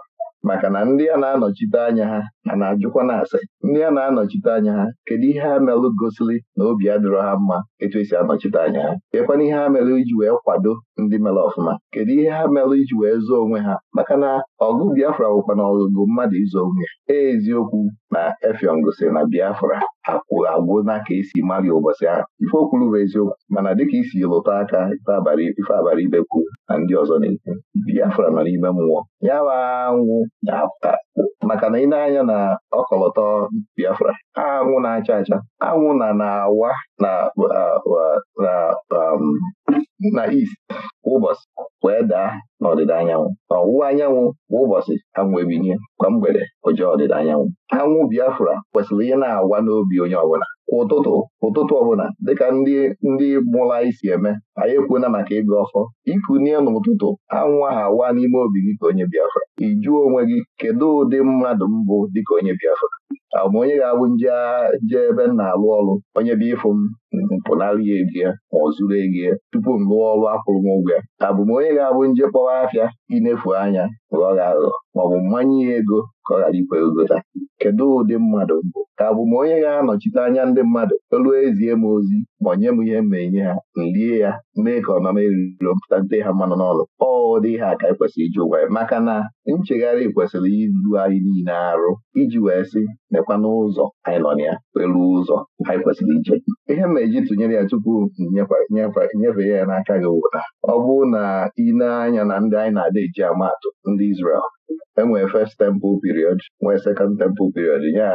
maka na ndị a na-anọchite anya ha na na-ajụkwa na-asị ndị a na-anọchite anya ha kedu ihe ha melụ gosili na obi adịrọ ha mma etu esi anọchite anya ha kekwana ihe ha melụ iji wee kwado ndị mere ọfụma kedu ihe ha melụ iji wee zoo onwe ha maka na ọgụ Biafra bụkwa na ọgụgụ mmadụ izo onwe ya e, eziokwu na Efiong gosiri na Biafra akwụghị agwụ na ka esi mali ụbọchị ahụ ife okwuru bụ eziokwu mana dịka isi lụta aka ife abalị be kwu na ndị ọzọ na-ekwu Biafra nọ n'ime mmụọ ya wa nwụ maka na ị na-anya na ọkọlọtọ Biafra anwụ na-acha acha anwụ na na-awa na um, na East ụbọchị wee daa n'ọdịda anyanwụ N'ọwụwa anyanwụ bụ ụbọchị anwụ ebinie kwa mgbede ụjọ ọdịda anyanwụ anwụ Biafra kwesịrị ihe na-awa n'obi onye ọbụla ụtụtụ ụtụtụ ọbụla dịka ndị ndị mụrụ anyị si eme anyị ekwuona maka ịga ọfọ ikunye n'ụtụtụ anwụ ahụ awa n'ime obi gị ka onye Biafra ị onwe gị kedu ụdị mmadụ mbụ dịka onye Biafra ma onye ga-abụ nje ebe m na-alụ ọrụ onye bịa ịfụ m mpụnara ya ego ya ma ọ zuru ego ya tupu m lụọ ọrụ akwụrụ m ụgwọ ya onye ga-abụ nje kpọwa afịa inefu anya ghọrọ aghụghọ maọbụ mmanya ya ego ka ọ ghara ikwe gota kedu ụdị mmadụ mbụ ka abụ m onye ga-anọchite anya ndị mmadụ elu ezie m ozi ma onye m ihe ma enye ha nlie ya mee ka ọnọm eriro mpụta nte ha mmanụ n'ọlụ ọ dị ha ka anyị e kwesịrị iji ụgwa ya maka na nchegharị kwesịrị ilu anyị niile arụ iji wee sị mekwana n'ụzọ anyị nọ na ya elu ụzọ anyị kwesịrị ije ihe ma eji tụnyere ya tupu nyefee ya n'aka gị wụta ọ bụrụ na ị na-anya na ndị anyị na-ada eji ndị Izrel E enwee first temple period nwee second temple period nye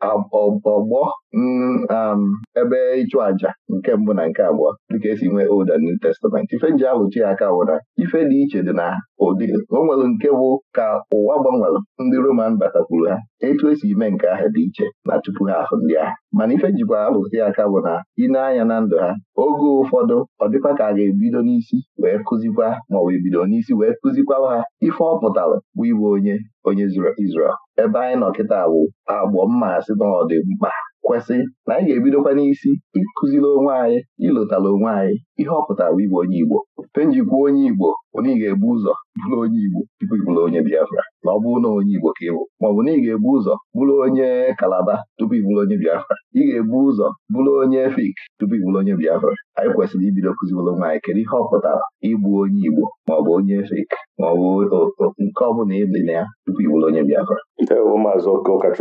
a ọgbọ mm, um, ebe ịchụ aja nke mbụ na nke abụọ dịka esi nwee Old and New Testament ife nji ahụ ya aka bụ ife dị iche dị na ụdị o nwere nke bụ ka ụwa gbanwere ndị Roman batakwuru ha etu esi ime nke ahụ dị iche na tupu ha ahụ ndị ahụ mana ife jikwa arụzi aka bụ na ile anya na ndụ ha oge ụfọdụ ọ dịkwa ka a ga-ebido n'isi wee kụzikwa maọbụ ebido n'isi wee kụzikwa ha ife ọ pụtara bụ ịbụ onye onye Izrel ebe anyị nọ kịta bụ agbọ mmasị na ọ dị mkpa kwesị na anyị ga-ebidokwa n'isi ịkụziri onwe anyị ịlụtala onwe anyị ihe ọ pụtara ịbụ onye Igbo penjikwuo onye Igbo ị ga-ebu ụzọ bụrụ onye Igbo tupu ịbụrụ onye Biafra na ọ bụ na onye Igbo ka ịbụ maọbụ na ị ga-ebu ụzọ bụrụ onye Kalaba tupu ị bụrụ onye Biafra ị ga-ebu ụzọ bụrụ onye Efik tupu ị bụrụ onye Biafra anyị kwesịrị ibido kụziworo nwaanyị kedu ihe ọ pụtara ịbụ onye Igbo maọbụ onye Efik maọbụ nke ọ bụla ịdị na ya tupu ị bụrụ onye Biafra maazị ka onye ọ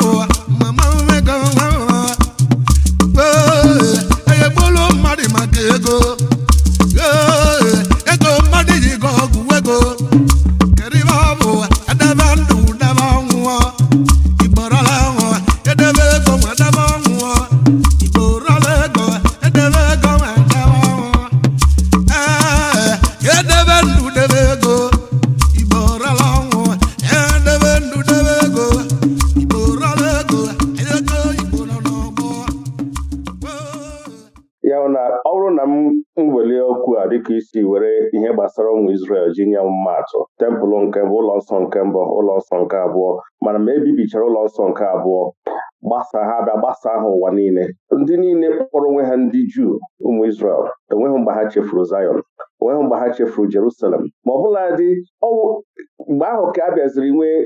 bụ mama ego
dịka isi were ihe gbasara ụmụ Izrel ji nye atụ tempụl nke mbụ ụlọ nsọ nke mbụ ụlọ nsọ nke abụọ mana ma ebibichara ụlọ nsọ nke abụọ gbasa ha bịa gbasa ha ụwa niile ndị niile kpọrọ onwe ha ndị Juu ụmụ Izrel enweghị mgbe ha chefuru enweghị mgbe ha Jerusalem ma ọ bụla dị mgbe ahụ ka a bịaziri nwee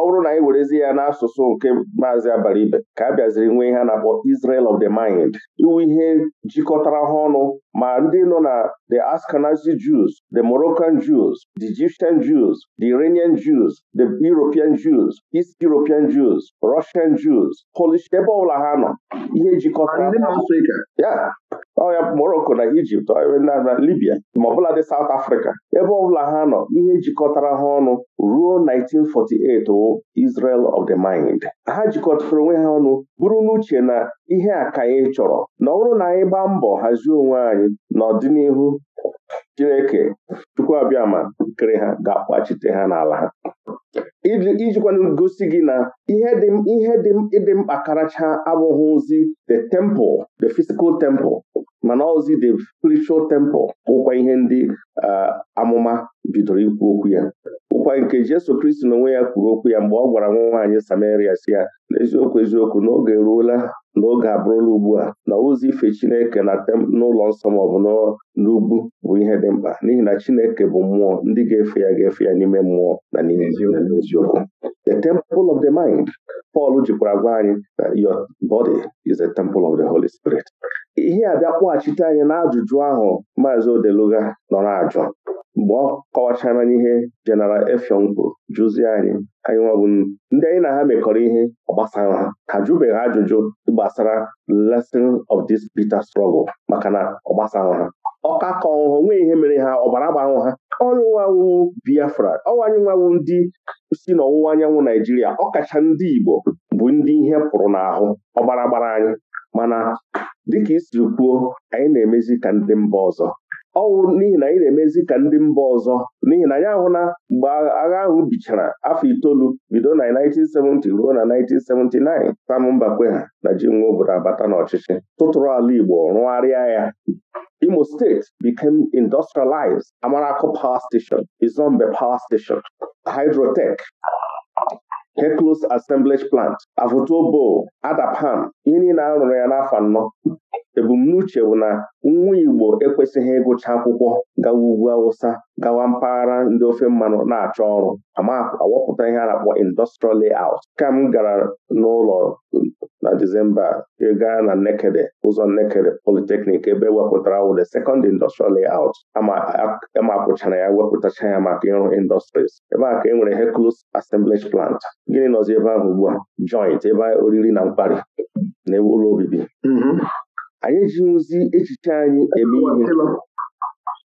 ọ na anyị werezi ya n'asụsụ nke maazị ibe ka a bịaziri nwee ihe a na-akpọ Israel of the mind iwu ihe jikọtara ha ọnụ ma ndị nọ na the Ashkenazi Jews the Moroccan Jews the Egyptian Jews the Iranian Jews the European Jews East European Jews Russian Jews Polish ebe ọbụla ha nọ ihe jikọtara Ọrịa ya Morocco na Ijipt na Libya ma ọbụla dị South Africa ebe ọbụla ha nọ ihe jikọtara ha ọnụ ruo 1948 Israel of the Mind ha jikọtara onwe ha ọnụ bụrụ n'uche na ihe a ka anyị chọrọ na ọ bụrụ na anyị gbaa mbọ hazie onwe anyị n'ọdịnihu Chineke Chukwu abịama kere ha ga-akpachite ha n'ala ha ijikwana gosi gị na ihe dị mkpa karacha ozi the temple the physical temple mana ozi the spiritual temple bụkwa ihe ndị amụma bidoro ikwu okwu ya ụkwa nke Jesu Kristi na onwe ya kwuru okwu ya mgbe ọ gwara nwa nwaanyị Samaria si ya n'eziokwu eziokwu n'oge eruola n'oge abụrụla ugbu a na ozi ife Chineke na n'ụlọ nsọ maọbụ n'ugwu bụ ihe dị mkpa n'ihi na Chineke bụ mmụọ ndị ga-efe ya ga-efe ya n'ime mmụọ na n'ime n'eziokwu the temple of the mind Pọl jikwara gwa anyị na your body is the temple of the Holy Spirit ihe a bịa kpọghachite anyị n'ajụjụ ahụ maazi Odeluga nọ na-ajụ mgbe ọ kọwachara n'ihe jeneral Effiong jụzie anyị anyị nwabụ ndị anyị na ha mekọrọ ihe gbasara ha ha jụbeghị ajụjụ gbasara lesson of this bitter struggle maka na ọ ha ka ọṅụṅụ nwee ihe mere ha ọbara gbanwụ ha ọrụwawu biafra ọwanyụnwawu ndị si n'ọwụwa anyanwụ naijiria ọkacha ndị igbo bụ ndị ihe pụrụ n'ahụ ọbara gbara anyị mana dịka isiri kwuo anyị na-emezi ka ndị mba ọzọ ọwụ n'ihi na anyị na-emezi ka ndị mba ọzọ n'ihi na anyị ahụ na mgbe agha ahụ bichara afọ itoolu bido na 1970 ruo na 1979 Sam ha na ji nwa obodo abata n'ọchịchị tụtụrụ ala Igbo rụgharịa ya Imo State became industrialized Amarako Power Station Izombe Power Station Hydrotech Heclos Assemblage Plant Avotobo Adapam ihe na-arụrụ ya n'afọ anọ ebumnuche bụ na nwa Igbo ekwesịghị ịgụcha akwụkwọ gawa ugwu Awụsa gawa mpaghara ndị ofe mmanụ na-achọ ọrụ ama ihe a na-akpọ industrial layout ka m gara n'ụlọ na Disemba e gaa na Nekede ụzọ Nekede Polytechnic ebe ewepụtara wụ the second industrial layout ama akwụchara ya wepụtacha ya maka ịrụ industries ebe a ka e nwere Hercules assemblage plant gịnị nọzi ebe ahụ ugbu a joint ebe oriri na nkwari na ụlọ obibi mm-hmm. anyị ozi echiche anyị eme ihe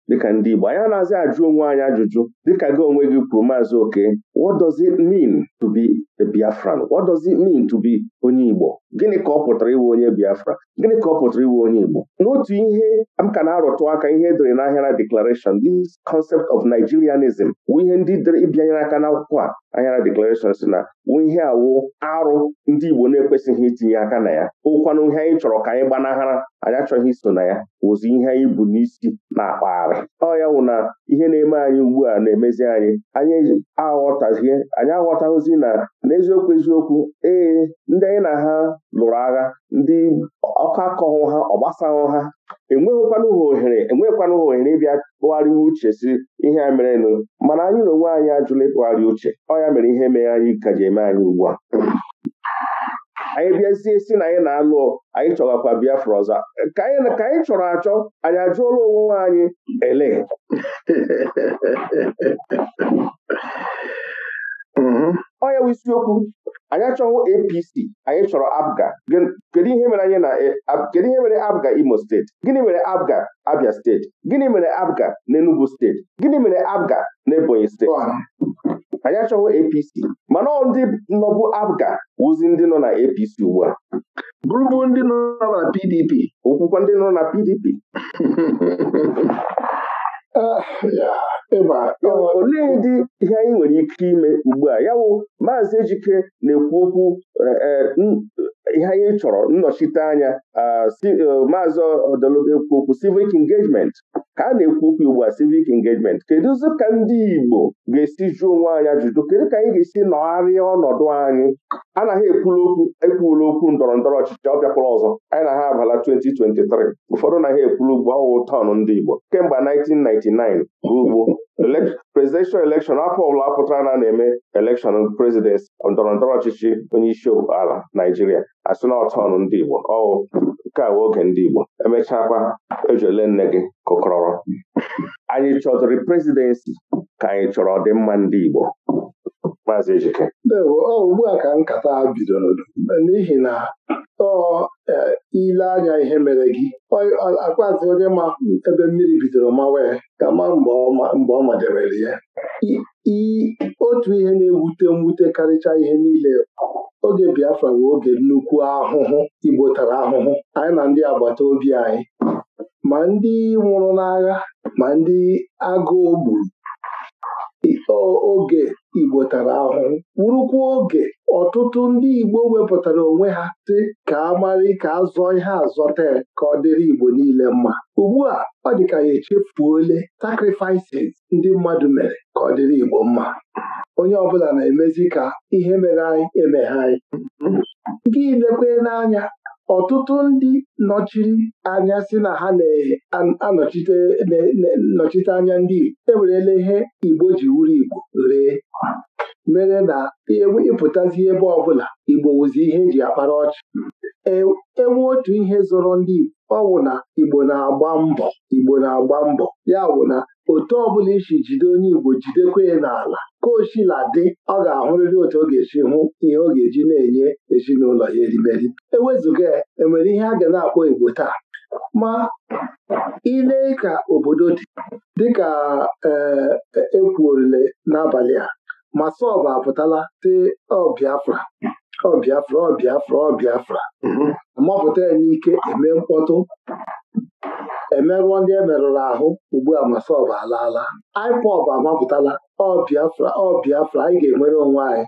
dịka ndị Igbo anyị na-azị ajụ onwe anyị ajụjụ dịka gị onwe gị kwuru maazị oke what does it mean to be a Biafran what does it mean to be onye Igbo gịnị ka ọ pụtara iwe onye Biafra gịnị ka ọ pụtara iwe onye Igbo n'otu ihe m ka na-arụtụ aka ihe edere n'ahịa na declaration this concept of Nigerianism wụ ihe ndị dere ịbịanyere aka n'akwụkwọ a ahịara declaration si na wu ihe awụ arụ ndị Igbo na-ekwesịghị itinye aka na ya okwanụ ihe anyị chọrọ ka anyị gbanahara anyị achọghị iso na ya wụzi ihe anyị bụ n'isi na-akpagharị ọ ya wụ na ihe na-eme anyị ugbu a na-emezi anyị anyị aghọtazie anyị aghọtaghịzi na n'eziokwu eziokwu ee ndị anyị na ha lụrụ agha ndị ọkọ akọghụ ha ọgbasahụ ha enweghịkwanụ ha ohere enweghịkwanụ ha ohere ịbịa tụgharịwa uche si ihe a merenụ mana anyị na onwe anyị ajụla ịtụgharị uche ọ ya mere ihe mere anyị ka ji eme anyị ugbu a anyị bịazie si na anyị na-alụ anyị chọgakwa Biafra ọzọ ka anyị chọrọ achọ anyị ajụọla onwe anyị ele mhm. ọ ya bụ isiokwu anyị achọghị APC anyị chọrọ abga kedu ihe mere anyị na e, kedu ihe mere Imo steeti gịnị mere abga Abia steeti gịnị mere abga na Enugu steeti gịnị mere abga na Ebonyi steeti anyị achọghị APC mana ndị nọbụ APGA wụzi ndị nọ na APC
ugbu a bụrụbụ ndị nọ na PDP okwukwa ndị nọ na PDP ah, olee ndị ihe
anyị nwere ike ime ugbu a ya maazị Ejike na-ekwu okwu eh, eh, ihe anyị chọrọ nnọchite anya ah, eh, maazị Odologwu ekwu okwu civic engagement ka a na-ekwu okwu ugbu a civic engagement ụzọ ka ndị Igbo ga-esi jụọ onwe anyị ajụjụ kedu ka anyị ga-esi nọgharịa ọnọdụ anyị anaghị ekwula okwu ekwula okwu ndọrọ ndọrọ ọchịchị ọ ọzọ anyị na ha abala 2023 ụfọdụ naghị ekwulu ugbo ọwụ tọn ndị Igbo kemgbe 1999 ruo ugbo presidential election afọ ọbụla pụtara na na-eme election president ndọrọ ndọrọ ọchịchị onye isi ala Naijiria asị na ọtọn ndị Igbo ọwụ nke a oge ndị Igbo emechakwa ejele nne gị kụkọrọrọ anyị chọtụrụ prezidensi ka anyị chọrọ ọdịmma ndị Igbo maazị Ejike
ugbu a ka nkata a bidoro n'ihi na tọọ e, ile anya ihe mere gị akwazi onye ma ebe mmiri bidoro mawa ka ma mgbe ọ madebere ya otu ihe na-ewute mwute karịcha ihe niile oge Biafra bụ oge nnukwu ahụhụ Igbo tara ahụhụ anyị na ndị agbata obi anyị ma ndị nwụrụ n'agha ma ndị agụụ gburu oge Igbo tara ahụhụ wurukwa oge ọtụtụ ndị Igbo wepụtara onwe ha dị ka amarị ka azọ ihe azọte ka ọ dịrị Igbo niile mma ugbu a ọ dị ka ya echefuole sakrifices ndị mmadụ mere ka ọ dịrị Igbo mma onye ọbụla na-emezi ka ihe mere anyị emeghe anyị gị lekwe n'anya ọtụtụ ndị nọchiri anya si na ha na-anọchite anya ndị Igbo ewerela ihe Igbo ji wuru Igbo ree mere na ịpụtazi e e ebe ọbụla Igbo wụzi ihe eji akpara ọchị enwe e otu ihe zọrọ ndị Igbo ọ na Igbo na-agba mbọ Igbo na-agba mbọ ya wụ na otu ọ bụla isi jide onye Igbo jidekwa ya n'ala ka oshila dị ọ ga-ahụrịrị otu ọ ga-esi hụ ihe ọ ga-eji na-enye ezinụlọ ya erimeri ewezụga ya enwere ihe a ga na-akpọ Igbo taa ma ile ka obodo dị dịka ekwuorile e n'abalị a ma sọbụ apụtala te ọbịafra ọbịafra ọbịafra ọbịafra, ọ mm-hmm. mapụta ya n'ike eme mkpọtụ emerụọ ndị e merụrụ ahụ ugbu a masọb alaala IPOB amapụtala ọ Biafra ọ Biafra anyị ga-enwere onwe anyị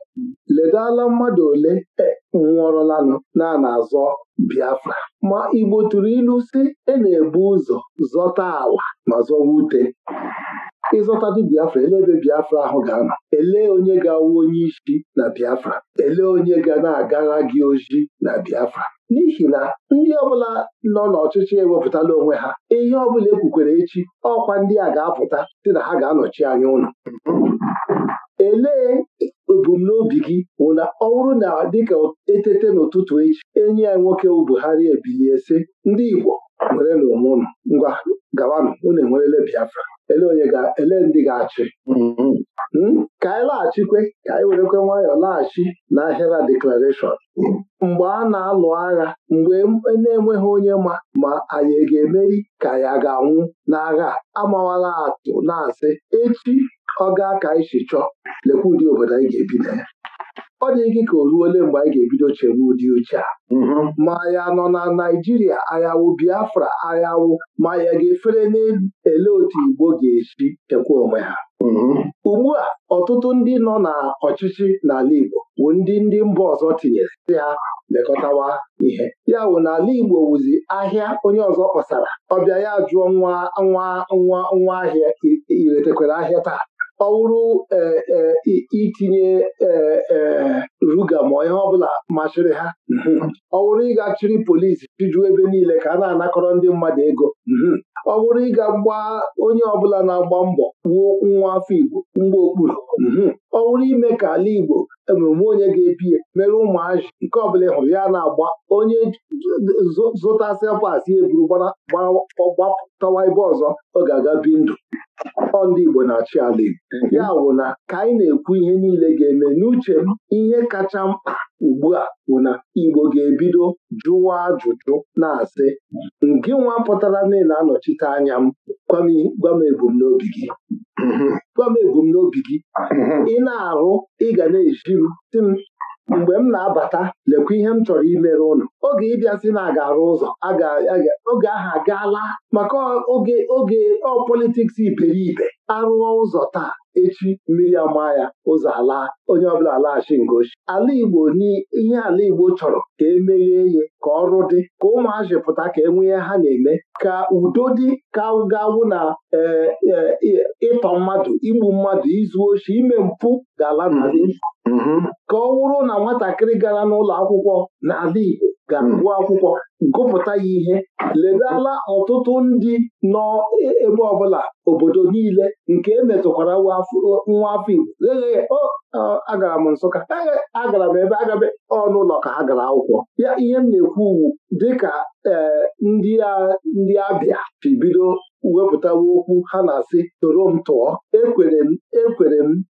ledala mmadụ ole e nwụọrụlanụ na na-azọ Biafra ma Igbo tụrụ ilu si e na-ebu ụzọ zọta ala ma zọwa ute ịzọtadụ Biafra ele ebe Biafra ahụ ga-anọ ele onye ga-awụ onye isi na Biafra elee onye ga na-agara gị oji na Biafra n'ihi na ndị ọbụla nọ n'ọchịchị ewepụtala onwe ha ihe ọbụla ekwukwere echi ọkwa ndị a ga-apụta dị na ha ga-anọchi anya ụlọ elee ebumnobi gị bụ na ọ bụrụ na dịka etete n'ụtụtụ echi enyi ya nwoke Buhari ebilie sị ndị Igbo nwere n'onwe ụnụ ngwa gawanụ unu enwerele Biafra ele onye ga ele ndị ga-achị mm-hmm. hmm? ka anyị laghachikwe ka anyị werekwe nwayọọ laghachi na ahịra deklarashọn mgbe a na-alụ agha mgbe e na-enweghị onye ma ma anyị e ga-emeri ka ya ga-anwụ n'agha amawala atụ na-asị echi ọ gaa ka anyị si chọọ lekwa ụdị obodo anyị ga-ebi na ya ọ dị gị ka o ruole mgbe anyị ga-ebido chebe ụdị uche a mm-hmm. ma ya nọ na Naijiria ayawụ Biafra ayawụ ma ya ga-efere n'ele otu Igbo ga-esi chekwa onwe ha mm-hmm. ugbu a ọtụtụ ndị nọ n'ọchịchị n'ala Igbo bụ ndị ndị mba ọzọ tinyere si ha lekọtawa ihe ya bụ n'ala Igbo wụzi ahịa onye ọzọ kpọsara ọbịa ya jụọ nwa nwa nwa nwa ahịa iretekwara ahịa taa Eh, eh, eh, mhm. ọwụrụ bụrụ itinye ruga ma ihe ọbụla machịrị ha ọ wụrụ ịga chịrị polisi chịjuo ebe niile ka a na-anakọrọ ndị mmadụ ego mhm. ọ wụrụ ịga gba onye ọbụla na-agba mbọ gbuo nwa afọ Igbo mgbe okpuru mhm. ọ wụrụ ime ka ala Igbo emume onye ga-epi ya mere ụmụazị nke ọbụla ị hụrụ ya na-agba onye zụta pasị eburu gbapụtawa ebe ọzọ ọ ga-aga bi ndụ ọ ndị Igbo na-achị ala Igbo ya wụ na ka anyị na-ekwu ihe niile ga-eme n'uche m ihe kacha mkpa ugbu a bụ na Igbo ga-ebido jụwa ajụjụ na-asị ngịnwa nwa pụtara na anọchite anya m gwa m ebumnobi gị mm-hmm. gwa m ebumnobi gị mm-hmm. ị na-arụ ị ga na-eji m si m mgbe m na-abata lekwa ihe m chọrọ imere ụnụ oge ịbịa si na aga arụ ụzọ oge ahụ agaala maka oge oge ọ politiks iberibe arụọ ụzọ taa echi mmiri ama ya ụzọ ala onye ọbụla alaghachi ngochi ala Igbo n'ihe ala Igbo chọrọ ka emeghee ihe ka ọrụ dị ka ụmụazị pụta ka e ha na-eme ka udo dị ka gawụ na e, e, ịtọ mmadụ igbu mmadụ izu oshi ime mpụ ga-ala n'ala mm-hmm. Mm-hmm. ka ọ wụrụ na nwatakịrị gara n'ụlọ akwụkwọ n'ala Igbo ga-agụ hmm. akwụkwọ gụpụta ya ihe ledala ọtụtụ ndị nọ e, ebe ọbụla obodo niile nke emetụkwara nwa afọ Igbo agara m Nsụka agara m ebe agabe ọnụụlọ ka ha gara akwụkwọ ihe m na-ekwu uwu dịka eh, ndị abịa bibido wepụtawa okwu ha na-asị toro m tụọ ekwere m ekwere m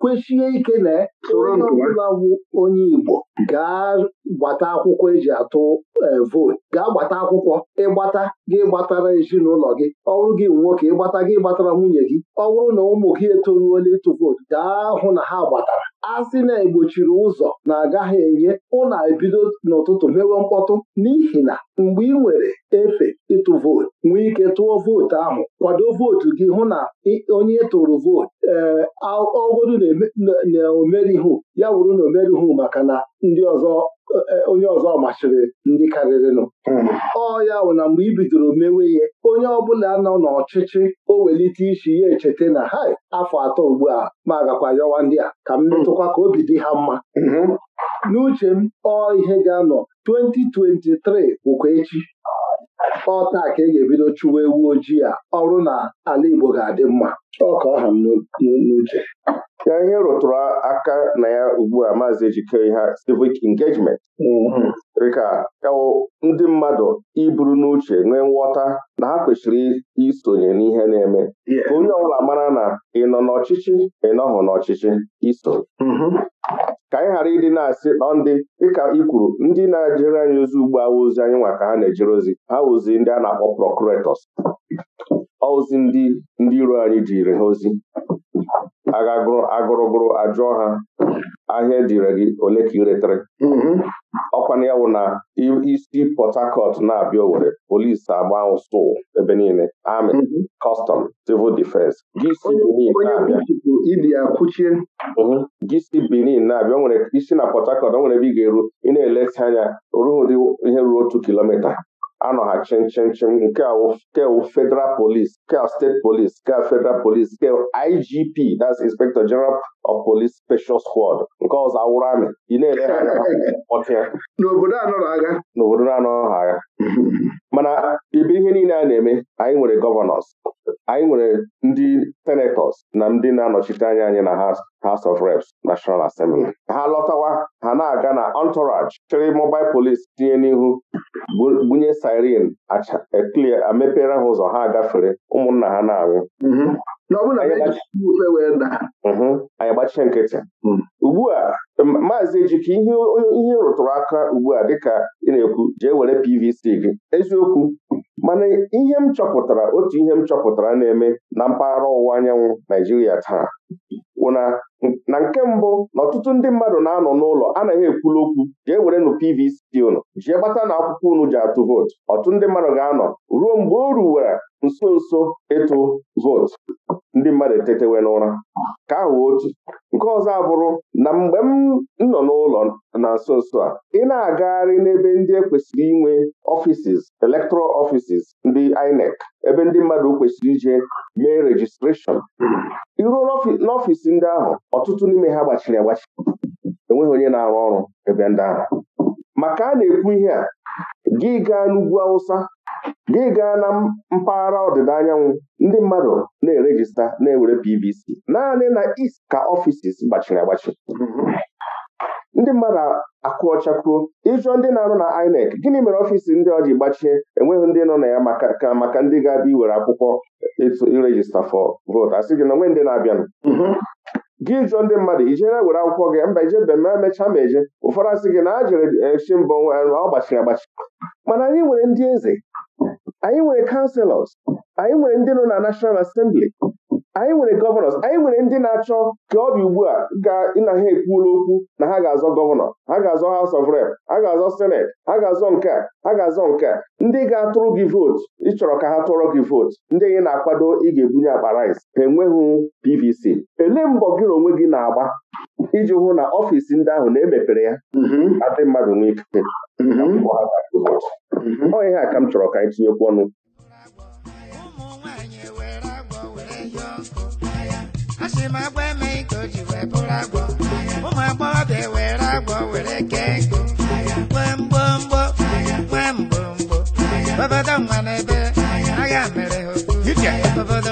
kwechie ike na e onye ọbụla bụ onye Igbo gaa gbata akwụkwọ eji atụ e, vootu gaa gbata akwụkwọ ịgbata gị gbatara ezinụlọ gị ọrụ gị nwoke ịgbata gị gbatara nwunye gị ọ bụrụ na ụmụ gị etoruola ịtụ vootu gaa hụ na ha gbatara asị na-egbochiri ụzọ na-agaghị enye ụna ebido n'ụtụtụ mewe mkpọtụ n'ihi na mgbe ị nwere efe ịtụ vootu nwee ike tụọ vootu ahụ kwado vootu gị hụ na onye tụrụ vootu ee eh, na na omerihu ya wụrụ na omerihu maka na ndị ọzọ Eh, eh, onye ọzọ machiri ndị karịrịnụ hmm. ọ ya bụ na mgbe i bidoro mewe ya onye ọbụla nọ n'ọchịchị o welite isi ya echeta na ha afọ atọ ugbu a ma agakwa yọwa ndị a ka m hmm. metụkwa ka obi dị ha mma hmm. n'uche m ọ ihe ga-anọ 2023 bụkwa echi taa ka e ga-ebido chụwa ewu ojii a ọrụ na ala Igbo ga-adị mma ọ ọha m n'uche ya ihe
rụtụrụ aka na ya ugbu a maazị ejike ha civic engagement mm-hmm. dịka ewu ndị mmadụ iburu n'uche nwee nghọta na ha kwesịrị isonye n'ihe na-eme ka onye ọbụla mara na ị nọ n'ọchịchị ị n'ọchịchị iso ka anyị ghara ịdị na-asị nọ ndị dịka ị kwuru ndị na-ejere anyị ozi ugbu a ozi anyị nwa ka ha na-ejere ozi ha ozi ndị a na-akpọ procurators ozi ndị ndị iro anyị jiri ha ozi agagụrụ agụrụgụrụ ajụọ ha ahịa ejire gị ole ka ị retere mm-hmm. ya bụ na isi Port Harcourt na-abịa owere polisi agba ụsụ ebe niile amị kọstọm mhm. civil defense gị si mhm. Benin na-abịa nwere isi na Port Harcourt o nwere ebe ị ga-eru ị na-eleta anya ruo ụdị ihe ruo otu kilomita anọha chen nke kewu federal police kewu steeti police kewu federal police nke IGP that's inspector general of police special squad nke ọzọ awụrụ amị ị na-ele
n'obodo anọrọ agha
n'obodo anọ ha agha mana ibe ihe niile a na-eme anyị nwere gọvanọs anyị nwere ndị senatọs na ndị na-anọchite anya anyị na House of Reps National Assembly ha lọtawa ha na-aga na entourage chịrị mobile police tinye n'ihu gbunye siren e clear amepere ha ụzọ ha gafere ụmụnna ha na-anwụ mm-hmm. anyị gbachie mm-hmm. nkịtị mm. ugbu a maazị Ejike ihe ihe rụtụrụ aka ugbu a dịka ị na-ekwu jee were PVC gị eziokwu mana ihe m chọpụtara otu ihe m chọpụtara na-eme na mpaghara ọwụwa anyanwụ Naijiria taa wụ na nke mbụ na ọtụtụ ndị mmadụ na-anọ n'ụlọ anaghị ekwulu okwu jee werenụ PVC unu jee gbata na akwụkwọ unu ji atụ vootu ọtụtụ ndị mmadụ ga-anọ ruo mgbe o ruwere nso nso ịtụ vootu ndị mmadụ etetewe n'ụra ka ahụ otu nke ọzọ abụrụ na mgbe m nọ n'ụlọ na nso nso a ị na-agagharị n'ebe ndị ekwesịrị inwe ọfisis electoral ọfisis ndị INEC ebe ndị mmadụ kwesịrị ije mee rejistreshọn iruo n'ọfisi ndị ahụ ọtụtụ n'ime ha gbachiri agbachi enweghị onye na-arụ ọrụ ebe ndị ahụ maka a na-ekwu ihe a gị gaa n'ugwu Awụsa gị gaa na mpaghara ọdịda anyanwụ ndị mmadụ na-erejista na-ewere PVC naanị na East ka ọfisis gbachiri agbachi ndị mmadụ akụ ịjụọ ndị na-arụ na INEC gịnị mere ọfịs ndị ọ ji gbachie enweghị ndị nọ na ya maka maka ndị ga-abịa iwere akwụkwọ irejista fọ vootu sị gị na onwe ndị na-abịanụ gị jụọ ndị mmadụ ijere were akwụkwọ gị mba ijebe ma e mechaa ma eje ụfọdụ asị gị na a jere echi mbọ ọ gbachiri agbachi mana anyị nwere ndị eze anyị nwere kanselọs anyị nwere ndị nọ na nashọnal asembli anyị nwere gọvanọs anyị nwere ndị na-achọ ka ọ dị ugbu a na ha ekwuola okwu na ha ga-azọ gọvanọ ha ga-azọ haus of rep ha ga-azọ senet ha ga-azọ nke a ha ga-azọ nke a ndị ga-atụrụ gị vootu ịchọrọ ka ha tụọrọ gị vootu ndị gị na-akwado ị ga-ebunye akpa rice ha enweghị pvc elee mbọ gị na onwe gị na-agba iji hụ na ọfịs ndị ahụ na-emepere ya adị mmadụ nwee ikike ọ ihe a ka m chọrọ ka anyị tinyekwu ọnụ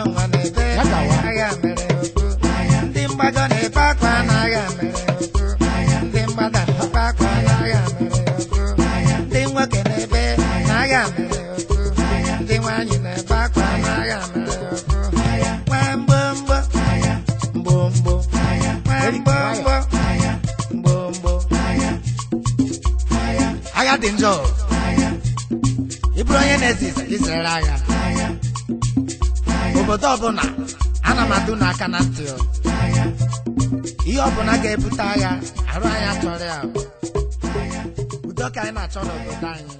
ụmụ dị njọ ị bụrụ onye na-eze izere agha obodo ọbụla ana m adụ n'aka na ntị ihe ọbụla ga-ebute agha arụ anyị achọrọ ya udo ka anyị na-achọ n'obodo anyị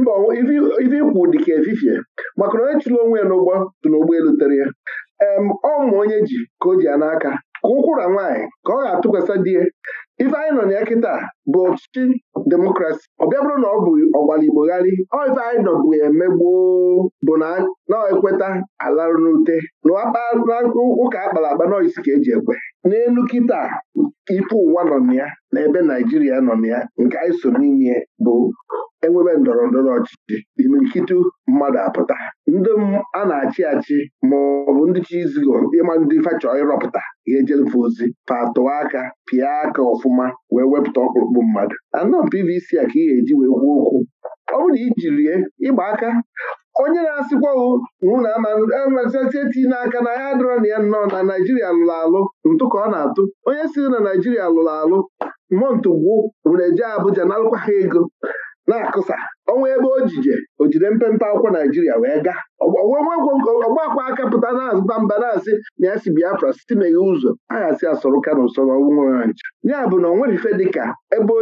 mba ife ikwu dịka efifie maka na onye chụrụ onwe ya n'ụgbọ dị n'ụgbọelu tere ya ọ mụ onye ji ka o ji ya n'aka ka ụkwụra nwaanyị ka ọ ga-atụkwasị die ife anyị nọ na ya kịta bụ ọchịchị demokrasi ọ bịa bụrụ na ọ bụ ọgbara igbogharị oive anyị nọbụ eme gboo bụ na na-ekweta alarụ n'ute na ụka akpara akpa noisi ka eji ekwe n'elu kịta ife ụwa nọ na ya na ebe naijiria nọ na ya nke anyị so n'ime bụ enwebe ndọrọ ndọrọ ọchịchị imirikiti mmadụ apụta ndị a na-achị achị ma ọ bụ ndị chi ịma ndị fachọ ịrọpụta ga-ejerefe ozi patụọ aka pịa aka ọfụma wee wepụta ọkpụrụkpụ igbu mmadụ anọ PVC a ka ị ga-eji wee gwuo okwu ọ bụrụ na rie ịgba aka onye na-asịkwa na amazieti n'aka na ya dịrọ na ya nnọọ na Naijiria lụrụ alụ ntụ ka ọ na-atụ onye si na Naijiria lụrụ alụ mmụọ ntụgbu were jee Abuja na alụkwa ha ego na-akụsa ọnwa ebe o jije o jide mpempe akwụkwọ naijiria wee gaa ọgbakwa aka pụta na-azụta mba na-asị na ya si biafra site meghe ụzọ aghasị asọrọ ka na ụsọrọ nwa ncha ya bụ na o dịka ebe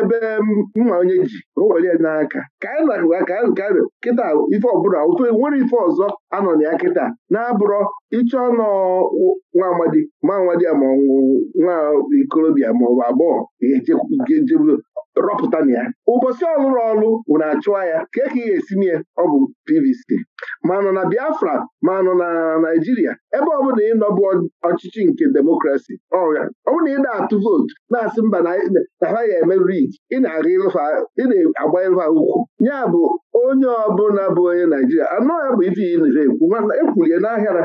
ebe mma um, onye ji o ya n'aka ka anyị na ka anyị kịta ife ọbụla ofe nwere ife ọzọ anọ na ya kịta na-abụrọ ịchọ nọ nwa amadi ma amadi ma nwa ikorobịa ma ọ bụ agbọghọ rọpụta na ya ụbọchị ọlụrụ ọlụ ụna achụwa ya kee ka ị ga-esi ya ọ bụ PVC ma nọ na Biafra ma nọ na Naijiria ebe ọ ị nọbụ ọchịchị nke demokrasi ọ bụrụ na ị na-atụ vootu na-asị mba na ha ga-emeriri ị na-agba ịlụha ukwu ya bụ onye ọbụla bụ onye Naijiria anọ e ya bụ ife ya ekwu ekwulie n'ahịara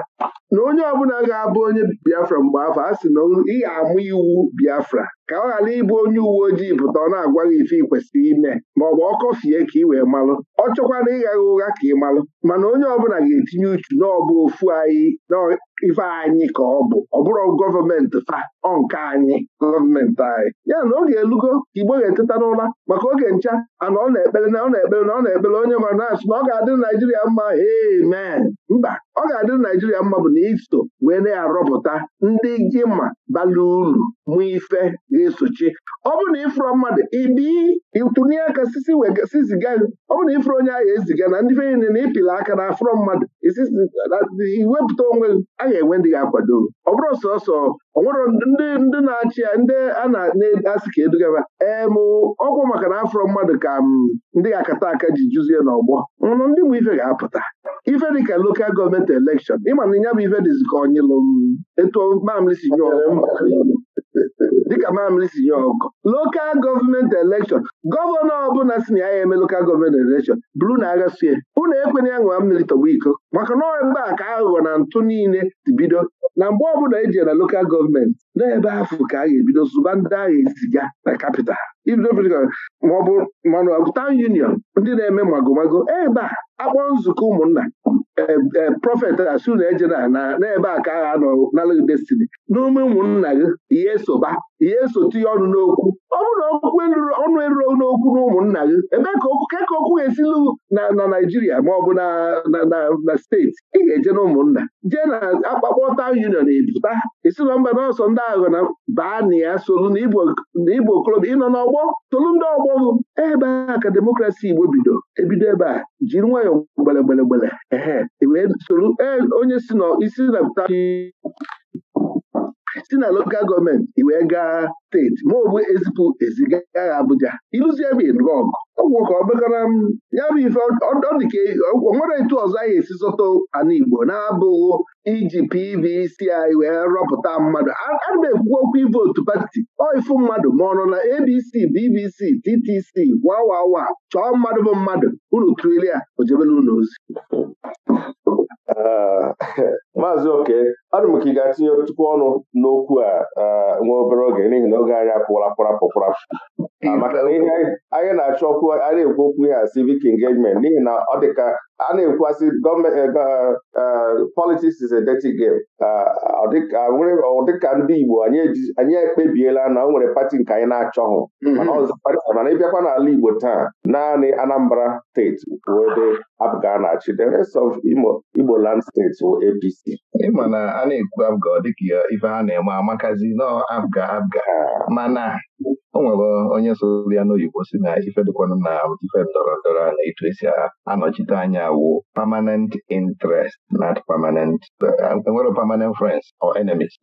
na onye ọbụla ga-abụ onye Biafra mgbe afọ a sị na ị ga-amụ iwu Biafra ka ọ ghara ịbụ onye uwe ojii pụta ọ na-agwa gị ife ị kwesịrị ime ma ọ bụ ọ kọfie ka ị wee malụ ọ chọkwana ịgha gha ụgha ka ị malụ mana onye ọbụla ga-etinye uchu n'ọbụ ofu anyị ife anyị ka ọ bụ ọ bụrụ gọọmenti fa ọnka anyị gọọmenti anyị ya na oge elugo igbo ga-eteta n'ụra maka oge ncha ana ọ na-ekpere na ọ na-ekpere na ọ na-ekpere onye ma na na ọ ga-adị Naijiria mma amen mba ọ ga-adị Naijiria mma bụ na iso wee na-arọpụta ndị gị ma bala uru mụ ife ga-esochi ọ bụ na ịfụrụ mmadụ ibi ịtụnye aka siziga ọ bụrụ na ịfụrụ onye ahụ eziga na ndị fe na ịpịla aka na afụrụ mmadụ iwepụta onwe gị agaghị enwe ndị ga-akwado ọ bụrụ sọsọ ọ nwere ndị ndị na-achị ya ndị a na-asị ka edugaba mụ ọgwụ maka na afọ mmadụ ka ndị ga-akata aka ji juzie n'ọgbọ nwụrụ ndị bụ ife ga-apụta ife dị ka lokal gọọmenti elekshọn ịmana na ya bụ ife dịzi ka onyịlụ etu mamlisi nyụọ dịka mamịrị si nye ọgụ lokal gọọmenti elekshọn gọvanọ ọbụla si na ya eme lokal gọọmenti elekshọn bụrụ na agha sie unu ekwenye ya ṅụa mmiri tọgbu iko maka na mgbe a ka aghụghọ na ntụ niile ti bido na mgbe ọbụla eji na lokal gọọmenti n'ebe afọ ka a ga-ebido zụba ndị agha eziga na kapital maọbụ manụ taụn union ndị na-eme magomago ebe a akpọ nzukọ ụmụnna Eh, eh, prọfet eh, asu na eje na n'ebe a ka agha nọ n'ala destiny n'ume ụmụnna gị ihe soba ihe esote ya ọnụ n'okwu ọ bụrụ na okwu ọnụ eruro n'okwu na ụmụnna gị ebe ka ka okwu ga-esilu na Naịjirịa ma ọ bụ na steeti ị ga-eje na ụmụnna jee na akpakpọ taụn union pụta isi nọ mba n'ọsọ ndị aghọ na baa na ya solu na igbo okorobịa ịnọ n'ọgbọ tolu ndị ọgbọ gụ ebe a ka demokrasi igbo bido ebido ebe a jiri nwayọọ gbelegbelegbele ehe e wee solu e, onye si na isi na si na lokal gọọmenti i wee gaa steeti ma ọ ezipụ eziga Abuja ịlụzie bụ ịnụ ọgụ ọgwụ ka ọ m ya bụ ife ọ e, nwere etu ọzọ anyị esi zụta ana Igbo na-abụghị iji PVC anyị wee rọpụta mmadụ ana m ekwu okwu ivotu pati oifu mmadụ ma ọ nọ na ABC BBC TTC wawawa chọọ mmadụ bụ mmadụ unu trilia ya ojebela ozi
ah,
maazị oke adụ m ka ị ga-atinye tupu ọnụ n'okwu a nwa obere oge n'ihi na oge anyị apụwala pụrapụ pụrapụ Ah, maka ihe anyị na-achọ okwu a na-ekwu okwu ya civic engagement n'ihi na ọ dịka a na-ekwuasị gọọmenti eh, eh, eh, politics is a dirty game ah, ah, Ọ dịka ndị Igbo anyị ekpebiela na o nwere pati nke anyị na-achọghị mhm. mana ịbịakwa n'ala Igbo taa naanị Anambra steeti ebe Abga na-achị the rest of Igbo land steeti APC
ịma na a na-ekwu Abga dịka ife a na-eme amakazi nọ Abga Abga mana o nwere onye soro ya n'oyibo si na ife na ife ndọrọ ndọrọ na eto esi anọchite anya wụ permanent interest not permanent enwere permanent friends or enemies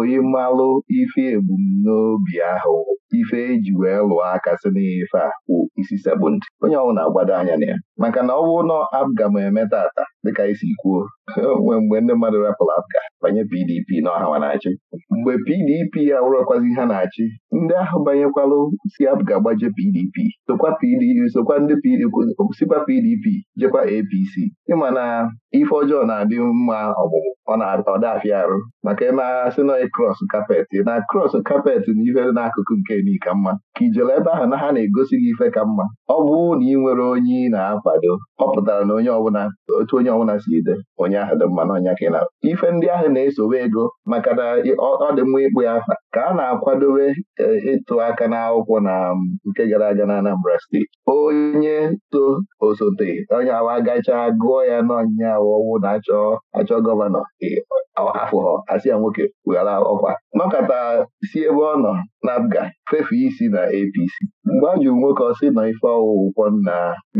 oyi mmalụ ife ebumnobi ahụ ife eji wee lụọ aka si n'ife a wụ isi sekpụnd onye ọnwụ na-agbado anya na ya maka na ọ ụlọ na abga m eme tata dịka isi kwuo nwee mgbe ndị mmadụ rapụrụ abga banye PDP na ọhawa na-achị mgbe PDP ya wụrọkwazi ha na-achị ndị ahụ banyekwalụ si abga gbaje PDP sokwa ndị sikwa PDP jekwa APC ịma na ife ọjọọ na-adị mma ọgbụgbụ ọ na afịa arụ maka agha sị na krọs kapet na krọs kapet na ife n'akụkụ nke ni ka mma ka ijele ebe ahụ na ha na-egosi gị ife ka mma ọ bụ na ị nwere onye ị na-akwado ọ pụtara na onye ọbụla otu onye ọbụla si ide onye ahụ dị mma na ọnya ka ị na ife ndị ahụ na-esowe ego maka na ọ dị mma ịkpụ ya afa ka a na-akwadobe eh, ịtụ aka n'akwụkwọ na mm, nke gara aga na Anambra steeti onye to osote onye awa gachaa gụọ ya n'ọnyịnya ọwụwụ na achọ achọ gọvanọ afụghọ asị ya nwoke weghara ọkwa nọkọta si ebe ọ nọ n'abga fefe isi na APC mgbe a jụrụ nwoke ọ sị nọ ife ọwụwụkwọ nna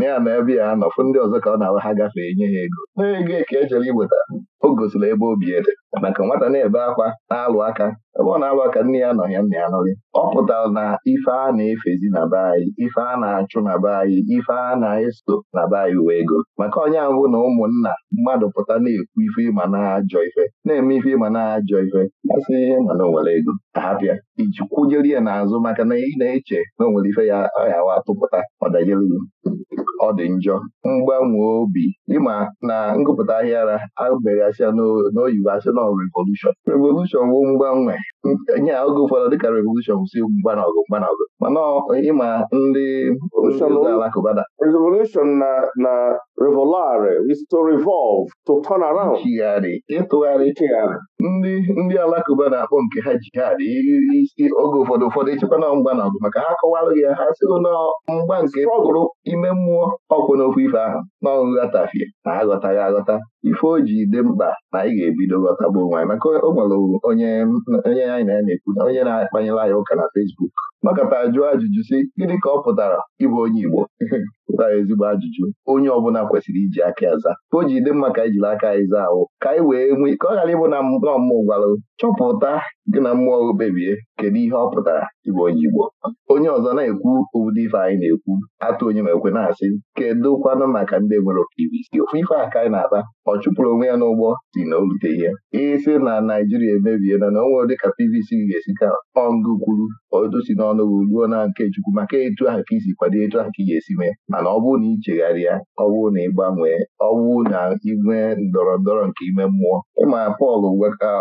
ya na ebe ya anọfụ ndị ọzọ ka ọ na-awa ha gafee nye ha ego na ego ka e chere iweta o gosiri ebe obi ede maka nwata na-ebe akwa na-alụ aka ebe ọ na-alụ aka nne ya nọ ya nna ya nọghị ọ pụtara na ife a na-efezi na be anyị ife a na-achụ na be anyị ife a na-eso na be anyị wee ego maka onye ahụ na ụmụnna mmadụ pụta na-ekwu ife ịma na-ajọ ife na-eme ife ịma na-ajọ ife masị ihe ma na onwere ego ahapịa iji kwụnyere ya n'azụ maka na ị na-eche na onwere ife ya ọyawa atụpụta ọdajere ọ dị njọ mgbanwe obi ịma na ngụpụta ahịara abịara gasịa n'oyibo asị na revolushọn revolushọn wụ mgbanwe onye oge ụfọdụ dịka revolushọn si mgba na ọgụ mgba na ọgụ mana ịma ndị alakụba da
na na revolare is to chigharị
ịtụgharị ndị ndị alakụba na-akpọ nke ha jihad isi oge ụfọdụ ụfọdụ ịchekwa na mgba na ọgụ maka ha kọwalụ ya ha sịgo na mgba nke pụrụ ime mmụọ ọkwụ n'okwu ife ahụ na ọghọtafie na aghọtaghị aghọta ife o ji dị mkpa na anyị ga-ebido ghọtagbu onwe maka o nwere onye anyị na na-ekwu na onye na-akpanyela anyị ụka na Fesbuk makata jụọ ajụjụ si gịnị ka ọ pụtara ịbụ onye Igbo pụtara ezigbo ajụjụ onye ọbụla kwesịrị iji aka aza o ji dị mma ka anyị jiri aka anyị zaa ahụ ka anyị wee nwee ka ọ ghara ịbụ na mmụọ gwarụ chọpụta gị na mmụọ kpebie kedu ihe ọ pụtara ịbụ onye Igbo onye ọzọ na-ekwu ụdị ife anyị na-ekwu atụ onye ma ekwe na-asị kedu kwanụ maka ndị nwere okirisi ofu ife a ka anyị na-ata ọ chụpụrụ onwe ya n'ụgbọ si na orute ihe isi na Naijiria emebie na na onwe ka PVC ga-esi ka ọngụ kwuru otu na n'ọnụ gị na nke Chukwu maka etu ahụ ka isi kwado etu ahụ ka ị ga-esi mee mana ọ bụrụ na ị chegharịa ọ bụrụ na ị gbanwee ọ bụrụ na inwe ndọrọ ndọrọ nke ime mmụọ ịma Pọl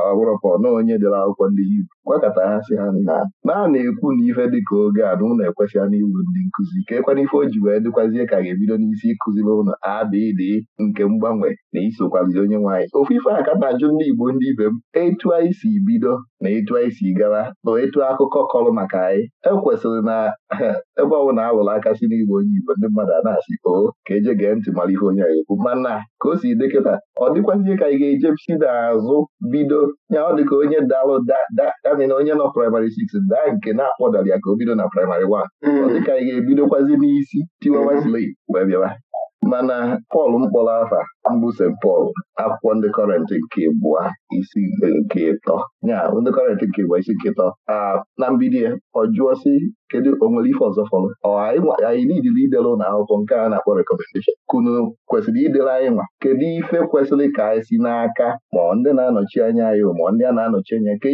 ọbụrụ Pọl na onye dere akwụkwọ ndị Hibru gwakọta ha sị ha na naanị ekwu na ife dịka oge a na ụlọ ekwesịghị n'ịbụ ndị nkụzi ka ekwana ife o ji wee dịkwazie ka ga-ebido n'isi ịkụziri ụlọ abịdị nke mgbanwe na isokwazi onye nwaanyị ofu ife a na-ajụ ndị Igbo ndị ibe m etu anyị si bido na etu anyị si gawa na etu akụkọ kọrọ maka anyị ekwesịrị na ebe ọ a lụrụ aka si n'igbo onye igbo ndị mmadụ a na-asị o ka eje gee ntị mara ihe onye anyị ekwu mana ka o si dịkịta ọ dịkwazie ka anyị ga si n'azụ bido ya ọ dịka onye dalụ damina onye nọ praịmarị 6 daa nke na-akpọdara ya ka o bido na praịmarị 1 hmm. ọ dịka anyị ga-ebidokwazi n'isi tiwa tiwawasili hmm. wee bịawa mana Pọl mkpọrọ afa mbụ St Pọl akwụkwọ ndị kọrentị nke bụa isi nke ịtọ ya ndị kọrentị nke bụa isi nke ịtọ na mbido ya e, ọ jụọ sị kedu o ife ọzọ fọrọ anyị niile idere ụlọ akwụkwọ nke a na-akpọ rekọmendeshọn kunu kwesịrị idere anyị nwa kedu ife kwesịrị ka anyị si n'aka ma ndị na-anọchi anya anyị ma ndị a na-anọchi anya ke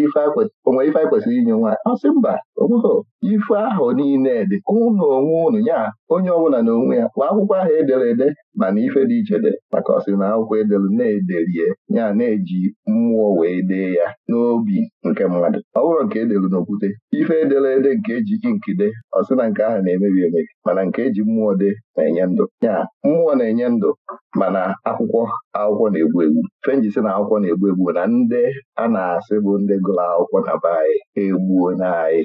onwere ife anyị kwesịrị inye nwa ọ mba onweghị ife ahụ niile dị ụnụ onwe ụnụ ya onye ọbụla na onwe ya ma akwụkwọ ahụ edere mberede mana ife dị iche dị maka ọ na akwụkwọ edelu na-ederie ya na-eji mmụọ wee dee ya n'obi nke mmadụ ọ bụrụ nke edelu n'okwute ife edela ede nke eji nkide ọsị na nke ahụ na-emebi emebi mana nke eji mmụọ de na-enye ndụ ya mmụọ na-enye ndụ mana akwụkwọ akwụkwọ na-egbu egbu fenjisi na akwụkwọ na-egbu egbu na ndị a na-asị bụ ndị gụrụ akwụkwọ na be anyị egbuo na anyị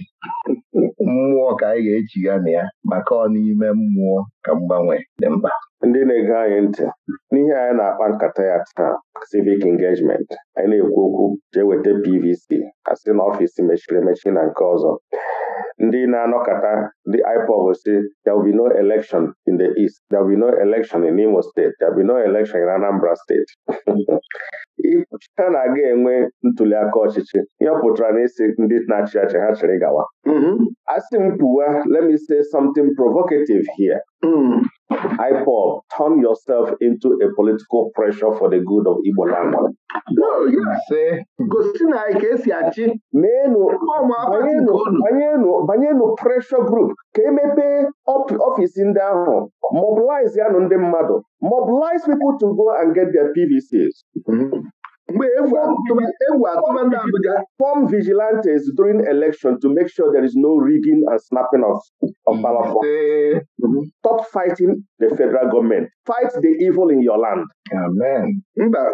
mmụọ ka anyị ga-echigha na ya maka ọ n'ime mmụọ ka mgbanwe dị mkpa
ndị na na-ege anyị ntị n'ihe anyị na-akpa nkata ya taa civic engagement anyị na-ekwu okwu jee weta PVC asị na ọfịs mechiri emechi na nke ọzọ ndị na anọkata ndị IPOB si there will be no election in the East there will be no election in Imo State there will be no election in Anambra State ha na-aga enwe ntuli aka ọchịchị ihe pụtara na isi ndị na-achị achị ha chịrị gawa mm-hmm. asị m pụwa let me say something provocative here mm. IPOB, turn yourself into a political pressure for the good of Igbo land.
gosi na anyị ka esi achị banyenụ pressure group ka emepee ọfisi ndị ahụ mobilize
yanụ ndị mmadụ mobilize people to go and get their PVCs mm-hmm. mgbe
egwu atụba ndị Abuja
form vigilantes during election to make sure there is no rigging and snapping of, of Stop fighting the federal government. Fight the evil in your land. mba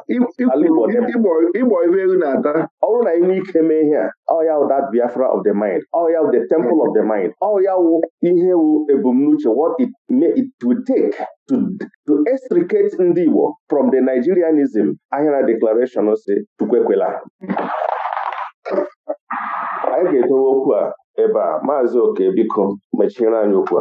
ịgbọ ibe elu na-ata ọ bụrụ na inwe ike mee ihe a ọ ya wụ that Biafra of the mind ọ ya wụ the temple of the mind ọ ya wụ ihe wụ ebumnuche what it may it will take to to extricate ndị Igbo from the Nigerianism ahịara declaration si chukwekwela anyị ga-edowe okwu a ebe a
maazị oke biko mechiere anyị okwu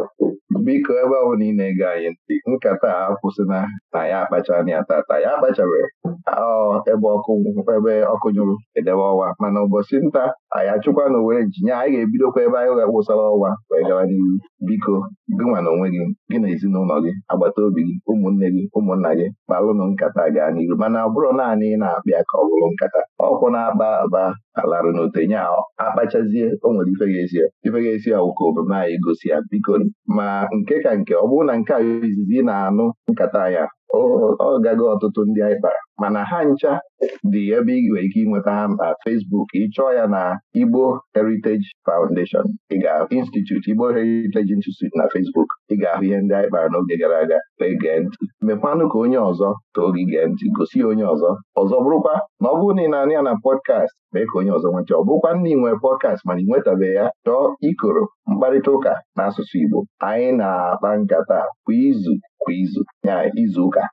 biko ebe ọ bụla ị na-ege anyị ntị nkata a kwụsịna na ya akpacha na ya tata ya akpachabeghị ebe ọkụ ebe ọkụ nyụrụ edebe ọwa mana ụbọchị nta anyị achụkwa na owere njinya anyị ga-ebidokwa ebe anyị ga-akwụsara ọwa wee gawa n'ihu biko gịnwa na onwe gị gị na ezinụlọ gị agbata obi gị ụmụnne gị ụmụnna gị kpalụnụ nkata gaa n'iru mana ọ bụrụ naanị ị na-akpịa ka ọ bụrụ nkata ọkwụ na-akpa aba alarụ n'otenye akpachazie o nwere ife ga n'ezie ibeghezi awụka omume anyị gosi ya biko ma nke ka nke ọ bụrụ na nke a izizi ị na-anụ nkata ya ọ gaghị ọtụtụ ndị anyị kpara mana ha ncha dị ebe ị nwere ike ịnweta ha na Facebook ịchọọ ya na Igbo Heritage Foundation ị ga-ahụ Institute Igbo Heritage Institute na Facebook ị ga-ahụ ihe ndị anyị kpara n'oge gara aga wee gee ntị mekwanụ ka onye ọzọ too gị gee ntị gosi onye ọzọ ọzọ bụrụkwa na ọ bụrụ na ị ya na pọdkast mee ka onye ọzọ nweta ọ bụkwa nna ị nwere pọdkast mana ị nwetabeghị ya chọọ ikoro mkparịta ụka n'asụsụ Igbo anyị na-akpa nkata kwa izu kwa izu ya izu ụka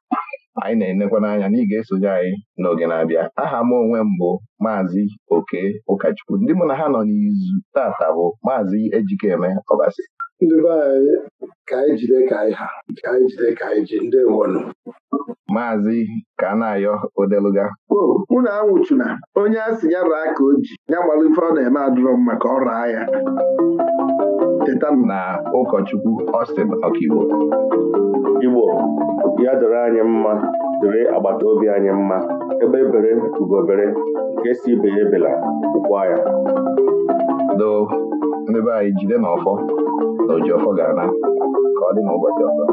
anyị na-enekwa n'anya na ị ga-esonye anyị n'oge na-abịa aha m onwe m bụ maazị oke ụkọchukwu ndị mụ na ha nọ n'izu tata bụ maazị ejikeme ọbasi ndị be anyị ka anyị jide ka anyị ka Odeluga mụ na
anwụchuna onye asị ya raa ka o ji ya gbara ife ọ na-eme adụrọ m maka ọrụ
agha na ụkọchukwu Austin Ọkigbo
Igbo
ya doro anyị mma dịrị agbata obi anyị mma ebe ebere ugobere
nke si ibe ya ebela ụkwa ya doo ndị anyị jide n'ọfọ ọfọ na ga ka ọ dị n'ụbọchị ọzọ